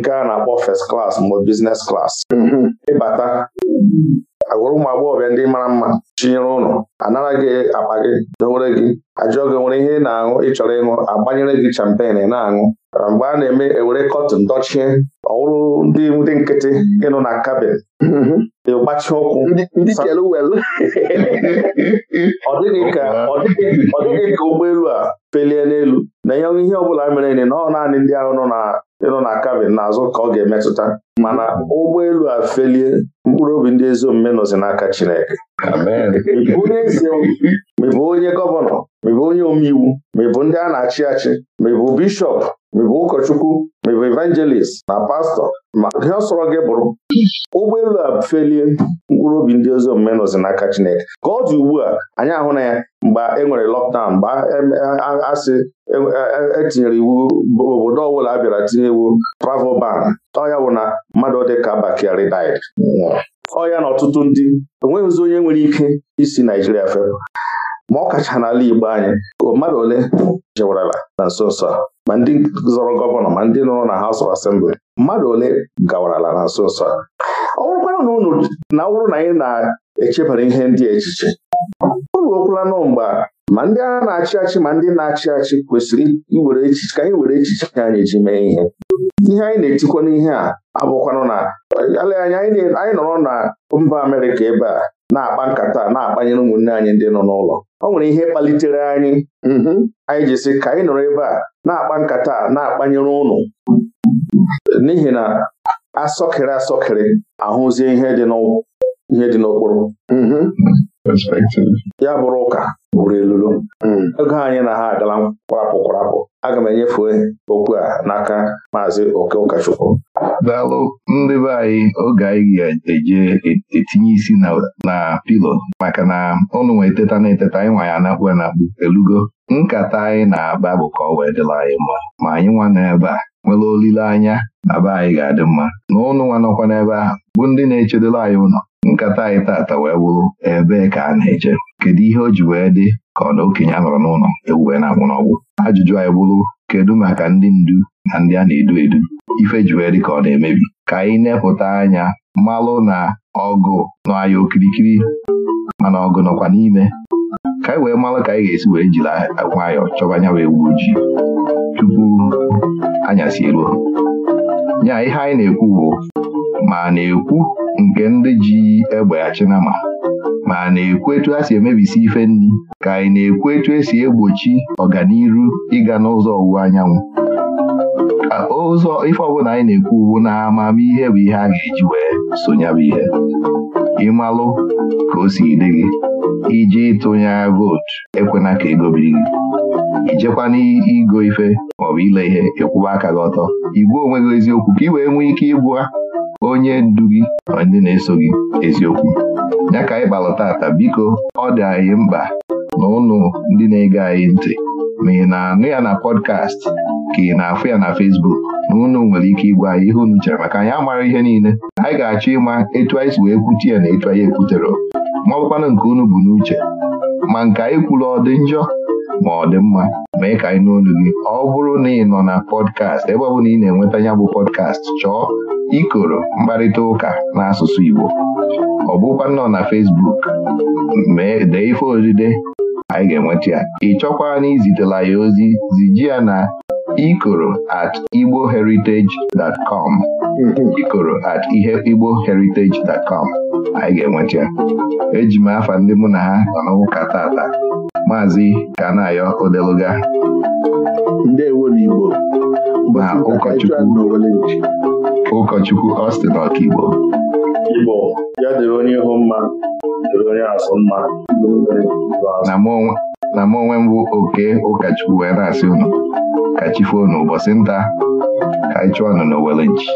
nke a na-akpọ fes klas mbụ business klas mm-hmm. ịbata agwụrụ ụmụ agbọghọbịa ndị mara mma chinyere ụlọ anara gị akpa gị dowere gị ajụọ gị nwere ihe ị na-aṅụ ịchọrọ ịṅụ agbanyere gị champen na-aṅụ mgbe a na-eme ewere kọtụn dochie ọwụrụ ndị ndị nkịtị ịnụ na kabin ịgbachi ụkwụ ọ dịghị ka ụgbọelu a felie n'elu na ihe ihe ọ bụla mere na ọ naanị ndị ahụ nọ na ịnọ na kabin n'azụ ka ọ ga-emetụta mana ụgbọelu a felie mkpụrụ obi ndị ezi omume nọzi n'aka Chineke ịbụ onye eze onye gọvanọ ma onye omeiwu ma ndị a na-achị achị ma bishọp ụkọchukwu ma bụ evangelist na pastọ ma ihe sọrọ gị bụrụ ụgbọelu a felie mkpụrụ obi ndị ozi omume nọzi n'aka Chineke ka ọ dị ugbu a anyị ahụ na ya mgbe e nwere lockdown mgbe asị etinyere e, e, e iwu obodo ọbụla a bịara tinye iwu travel ban ọya bụ na mmadụ dị ka bakari died ọya na ọtụtụ ndị enweghịzi onye nwere ike isi Naijiria fepụ ma ọ kacha n'ala Igbo anyị mmadụ ole jewurala na nso nso a ma ndị zọrọ gọvanọ ma ndị nọrọ na House of Assembly mmadụ ole gawarala na nso nso a ọ bụrụkwara na ụnụ na na anyị na-echebara ihe ndị echiche o ruokwala nụ mgbe ma ndị a na-achị achị ma ndị na-achị achị kwesịrị iwere echiche ka anyị were echiche anyị ji mee ihe ihe anyị na-etikwa n'ihe a abụkwanụ na ele anyị nọrọ na mba Amerịka ebe a na-akpa nkata na-akpanyere ụmụnne anyị ndị nọ n'ụlọ ọ nwere ihe kpalitere anyị mm-hmm. anyị ji sị ka anyị nọrọ ebe a na-akpa nkata na-akpanyere ụnụ n'ihi na asọkịrị asọkịrị ahụzie ihe dị n'ụkwụ mm-hmm. perspective. ya bụrụ ụka bụrụ elulu hmm. ego anyị na ha agala kwarapụ kwarapụ aga m enyefe okwu a n'aka maazị oke ụkọchukwu daalụ ndị be anyị oge anyị ga-eje etinye isi na pilo maka na ụnụ nwee eteta na eteta anyị nwa ya na elugo nkata anyị na-aba bụ ka ọ wee dịla anyị mma ma anyị nwa n'ebe a nwere olileanya na be anyị ga-adị mma na ụnụ nwa nọkwa n'ebe ahụ bụ ndị na-echedela anyị ụlọ nkata anyị tata wee bụrụ ebee ka a na-eje kedu ihe o ji wee dị ka ọ na okenye a nọrọ n'ụlọ ewu wee na-anwụ n'ọgwụ ajụjụ anyị bụrụ kedu maka ndị ndu na ndị a na-edu edu ife ji wee dị ka ọ na-emebi ka anyị nepụta anya malụ na ọgụ nọ anyị okirikiri mana ọgụ nọkwa n'ime ka anyị wee malụ ka anyị ga-esi wee jiri nwayọọ chọba anya wee wuo ojii tupu anyasị eruo nya ihe anyị na-ekwu bụ ma na-ekwu nke ndị ji egbe n'ama. ma a na-ekwu etu a si emebisi ife nri ka anyị na-ekwu etu esi egbochi ọganiru ịga n'ụzọ ọwụwa anyanwụ ụzọ ife ọbụla anyị na-ekwu ugbu na amamihe bụ ihe a ga-eji wee sonyabụ ihe ịmalụ ka o si dị gị iji tụnye vootu ekwena ka ego biri gị ijekwana igo ife maọbụ ile ihe ịkwụba aka gị ọtọ igbuo onwe gị eziokwu ka ị wee nwee ike ịgwa onye ndu gị na ndị na-eso gị eziokwu ya ka anyị kpalụ tata biko ọ dị anyị mkpa na ụnụ ndị na-ege anyị ntị ma ị na-anụ ya na pọdkast ka ị na-afụ ya na fesbuk na ụnụ nwere ike ịgwa anyị ihe unu chere maka anyị amara ihe niile anyị ga-achọ ịma etu anyị si wee kwute ya na etu anyị ekwutere ma ọ nke unu bụ n'uche ma nke anyị kwuru ọ dị njọ ma ọ dị mma mee ka anyị n'olu gị ọ bụrụ na ị nọ na pọdkast ebe ọ bụla ị na-enweta ya bụ pọdkast chọọ ikoro mkparịta ụka n'asụsụ Igbo ọ bụkwa nọ na Fesbuk mee dee ife odide anyị ga-enweta ya ị chọkwaa na izitela ya ozi ziji ya na ikoro at com. ikoro at ihe com anyị ga-enweta ya eji m afa ndị mụ na ha nọ n'ụka tata maazị Kanayo Odeluga ndewo n'Igbo na ụkọchukwu ụkọchukwu Austin Ọkigbo Igbo ya dịrị onye ihu mma dịrị onye asụ mma na m onwe mbụ oke ụkọchukwu were na-asị unu ka chi foo unu ụbọchị nta ka anyị chụọ unu n'Owelonji